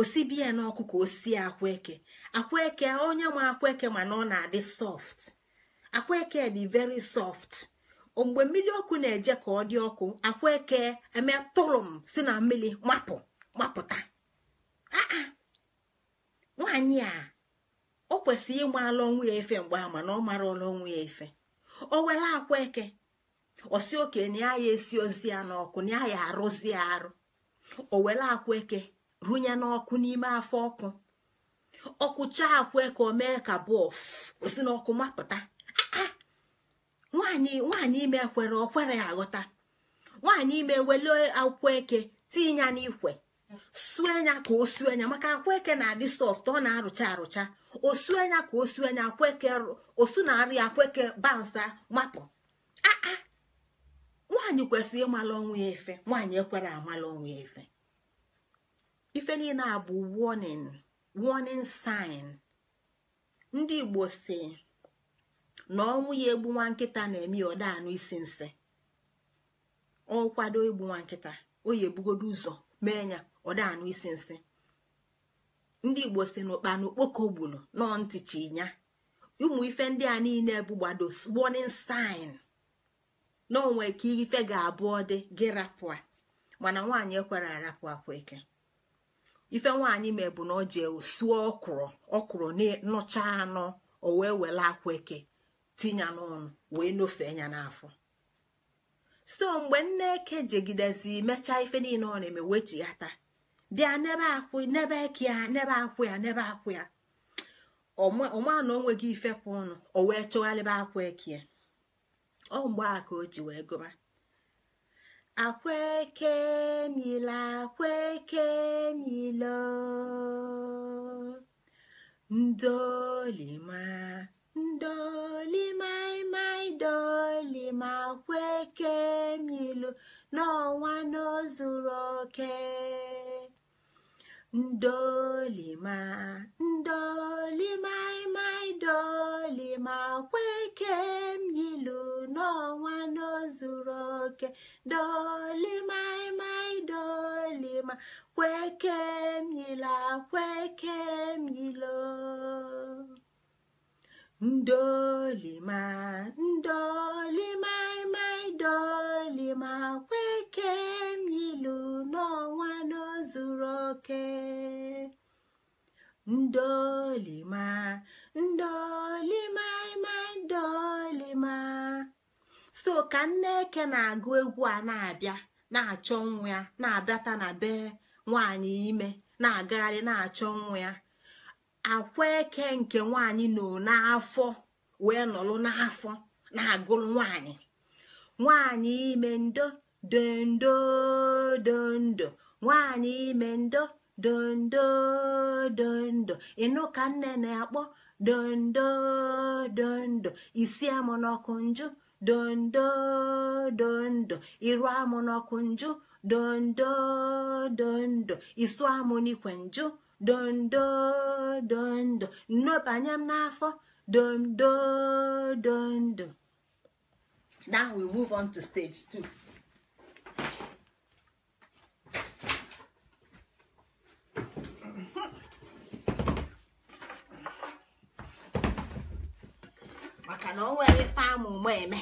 [SPEAKER 1] osibie n'ọkụ ka o sie akwa eke akwa eke onye nwe akwa eke mana ọ na-adị soft akwa eke dị very soft mgbe mmiri ọkụ na-eje ka ọ dị ọkụ akwa eke eme tụrụm si na mmiri mapụ mapụta ah, ah. nwaanyị a o kwesịrị ịgbala ọnwụ ya efe mgbe ama na ọ marala ọnwụ ya efe o were akwa eke osi oke na ya esi ozi ya n'ọkụ na ya arụzi ya arụ o were akwa eke runye n'ọkụ n'ime afọ ọkụ ọkụcha akwa eke o mee ka bọf osi n'ọkụ mapụta nwaanyị nwaanyị ime kwere okwere ya aghọta nwaanyị ime wele akwa eke tinye ya n'ikwe sue anya ka o sue anya maka akwaeke na-adị soft ọ na-arụcha arụcha osu anya ka osu anya akweke osu na-arụ ya akweke bansa mapụ aa ah, ah. nwaanyị kwesịrị ịmala ọnwa efe nwaanyị ekwere amala ọnwa efe ife niile a bụ warning warning sign ndị igbo si na ọnwụ ya egbu nwa nkịta na-eme ya ọda anụ isi nsị ọ kwado egbu nwa nkịta o ya ebugodo ụzọ mee ya ọdanụ isi nsị ndị igbo si n'ụkpa n'okpoko gburu nọ ntịchi ya ụmụ ife ndị a niile bụ gbado warning sign na onwe ka ife ga-abụ dị gị rapụ mana nwaanyị ekwere arapụ akwa eke ife nwaanyị mee bụ na o ji suo ọkwụrụ ọkwụrụ nụcha anọ o wee were akwa eke tinya n'ọnụ wee nofee ya n'afọ so mgbe nne eke jegidezi mechaa ife niile ọ na-eme wee ji ya taa bịa n'ebe akwụ n'ebe eke ya n'ebe akwụ ya n'ebe akwụ ya ọma na o nweghị ifepụ ọnụ o wee chọgharịba akwa e eke ya ọ mgbe a ka o ji wee gụba akwa eke mila akwa eke milo ndolima ndolima imai dolima akwa eke milo n'ọnwa n'ozuru oke ndolima ndolimaimai dolima kweke m yilu n'ọnwa n'ozuru oke dolimaimai dolima kweke m yila kweke yilo ndolima ndolima ma ndolima kweke m ilu n'ọnwa n'ozuru oke ndolima ndolima ma ndolima so ka nneke na-agụ egwu a na-abịa na-achọ nwa ya na-abịata na be nwaanyị ime na-agagharị na-achọ nwa ya akwa eke nke nwanyị nọ n'afọ wee nọrụ n'afọ na-agụrụ nwanyị nwanyị ime ndo dondo dondo nwanyị ime ndo dondo dondo ịnụ ka nne na-akpọ dondo dondo isi amụ n'ọkụ njụ dondo dondo iru amụ n'ọkụ njụ dondo dondo isu amụ n'ikwe njụ dondodondo nnọbanye m n'afọ dondodondo now we move on to stage two. maka na o nwere ife ụmụ eme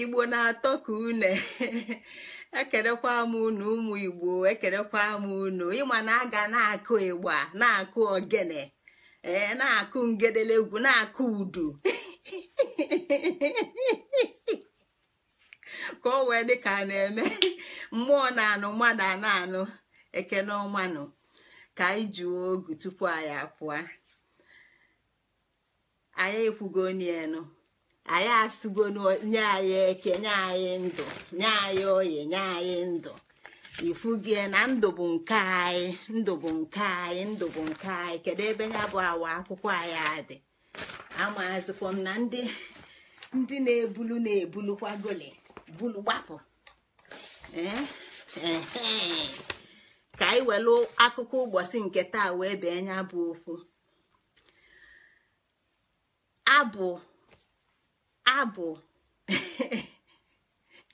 [SPEAKER 1] igbo na-atọ ka une ekerekwa m unu ụmụ igbo ekerekwa m unu ịma na aga na-akụ ịgba na-akụ ogene ee na-akụ ngedelegwu na-akụ udu ka o wee dị a na-eme mmụọ na-anụ mmadụ a na-anụ eke ekene ọmanụ ka anyị juo ogu tupu anyị apụọ anyị ekwugonelu anyị asịgonu nye anyị eke nye anyị ndụ nye anyị oyi nye anyị ndụ ifugie na ndụ bụ nke anyị ndụ bụ nke anyị ndụ bụ nke anyị kedu ebe ya bụ awa akwụkwọ anyị adị amazikwa m na ndị ndị na-ebulu na-ebulukwa goli bulu gbapụ eh, eh, eh. ka anyị welu akụkọ ụbọchị nke taa wee bee nya bụ okwu abụ abụ *laughs*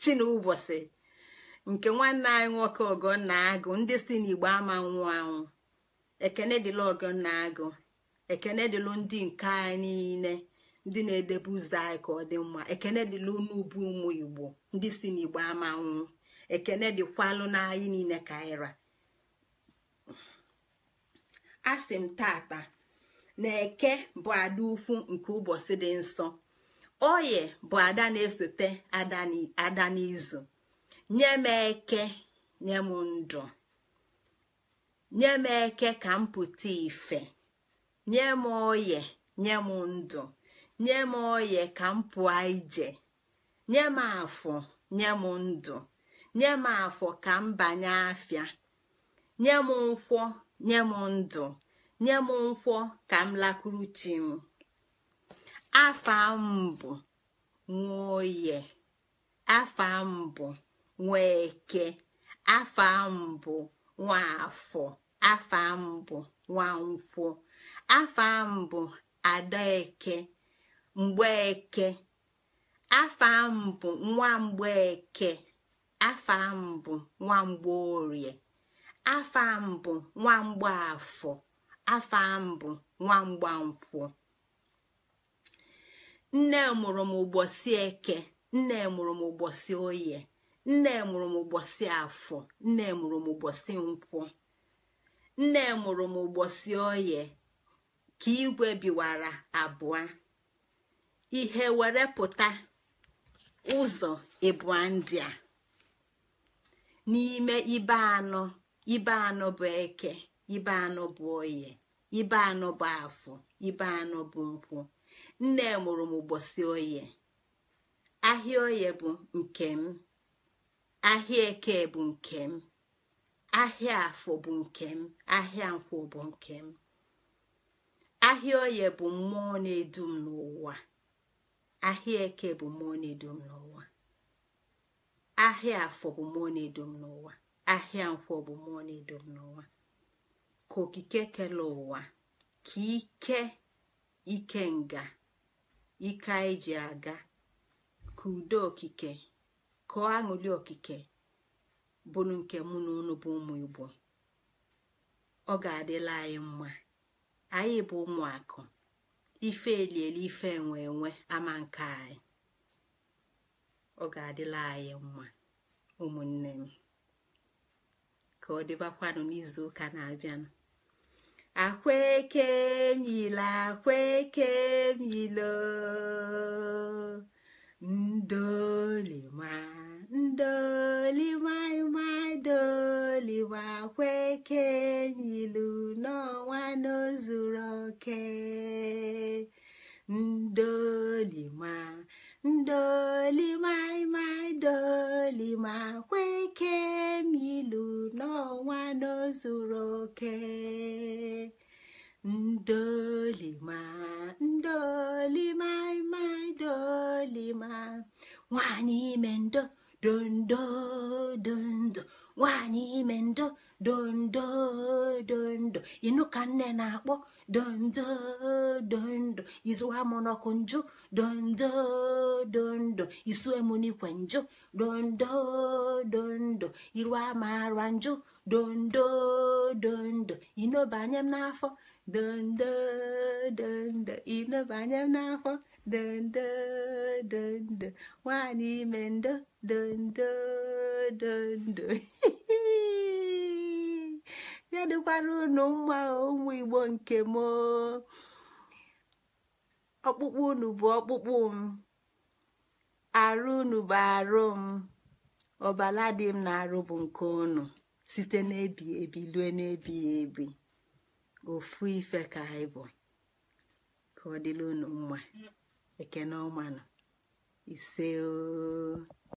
[SPEAKER 1] chinụbọchị nke nwanne anyị nwoke ọgọnna agụ ndị si n'igbo ama nwụ anwụ ekene dịla ọgọnna agụ ekene dịlụ ndị nke anyị niile ndị na-edebe ụzọ anyị ka ọ dị mma ekene dịlụ n'ubu ụmụ igbo ndị si n'igbo ama nwụ ekene dịkwalụ n'anyị niile ka anyị ra asị m tata na eke bụ ada ukwu nke ụbọchị dị nsọ oye bụ ada na-esote ada n'izu nye m eke nye m ndụ nye m eke ka m pụta ife nye m oye nye m ndụ nye m oye ka m pụọ ije nye m afọ nye m ndụ nye m afọ ka m banye afịa nye m nkwọ nye m ndụ nye m nkwọ ka m lakwuru chi m afa mbụ bụ nwoye afa mbụ nwa eke afa mbụ nwa afọ afa mbụ nwa nkwọ afa m bụ adaeke mgbe afa afọ mbụ nwa mgbeke afa m bụ nwamgbeorie afa nwa bụ afọ. afa mbụ nwa nkwụ, nne mụrụ m ụbọchị eke nne mụrụ m ụbọchị oye nne mụrụ m ụbọchị afọ nne mụrụ m ụbọchị nkwụ nne mụrụ m ụbọchị oye ka igwe biwara abụọ ihe were pụta ụzọ ịbụa ndị a n'ime ibe anọ ibe anọ bụ eke ibe anọ bụ oye ibe anọ bụ afọ ibe anọ bụ nkwụ nne mụrụ m ụbọchị oye ahịa oye bụ nke m ahịa eke bụ nke m ahịa afọ bụ nke m ahịa nkwụ bụ nke m ahịa oye bụ mmụọ na-edu m n'ụwa ahịa eke bụ mmụọ na-edu m n'ụwa ahịa afọ bụ mmụọ na-edu m n'ụwa ahịa nkwọ bụ mmụọ na-edu m n'ụwa ka okike kele ụwa ka ike ike nga ike anyị ji aga ka udo okike ka aṅụli okike bụrụ nke mụ na unu bụ ụmụ igbo ọ ga-adịla anyị mma anyị bụ ụmụakụ ife elieli ife enwe enwe ama nke anyị ọ ga-adịla anyị mma ụmụnne m ka ọ dịbakwanụ n'izu ụka na-abịanụ akwaekemile akwaekemile ndolima ndolimaịmadoliwa akwaekenyilu n'ọnwa n'ozuru oke ndolima ndolimaịmaị dolima kweke m n'ọnwa n'ozuru oke ndolima ndolimaịmaị dolima nwanyị ime ndo dondo dondo nwanyị ime ndo dondo dondo ịnụ ka nne na-akpọ dondo dondo izuwa m n'ọkụ njụ dondo dondo isue m n'ikwe njụ dondo dondo iru ama ara njụ dondo dondo ịnọbanye m n'afọ dondo dondo ịnọbanye m n'afọ dondo dondo nwaanyị ime ndo dondo dondo *laughs* ya dịkwara unu mma ụmụ igbo nke m ọkpụkpụ unu bụ ọkpụkpụ m arụ unu bụ arụ m ọbala dị m na-arụ bụ nke unu site n'ebi ebi lue n'ebighị ebi ofu ife ka anyị bụ ka ọ dịla unu mma ekene ọmanụ ise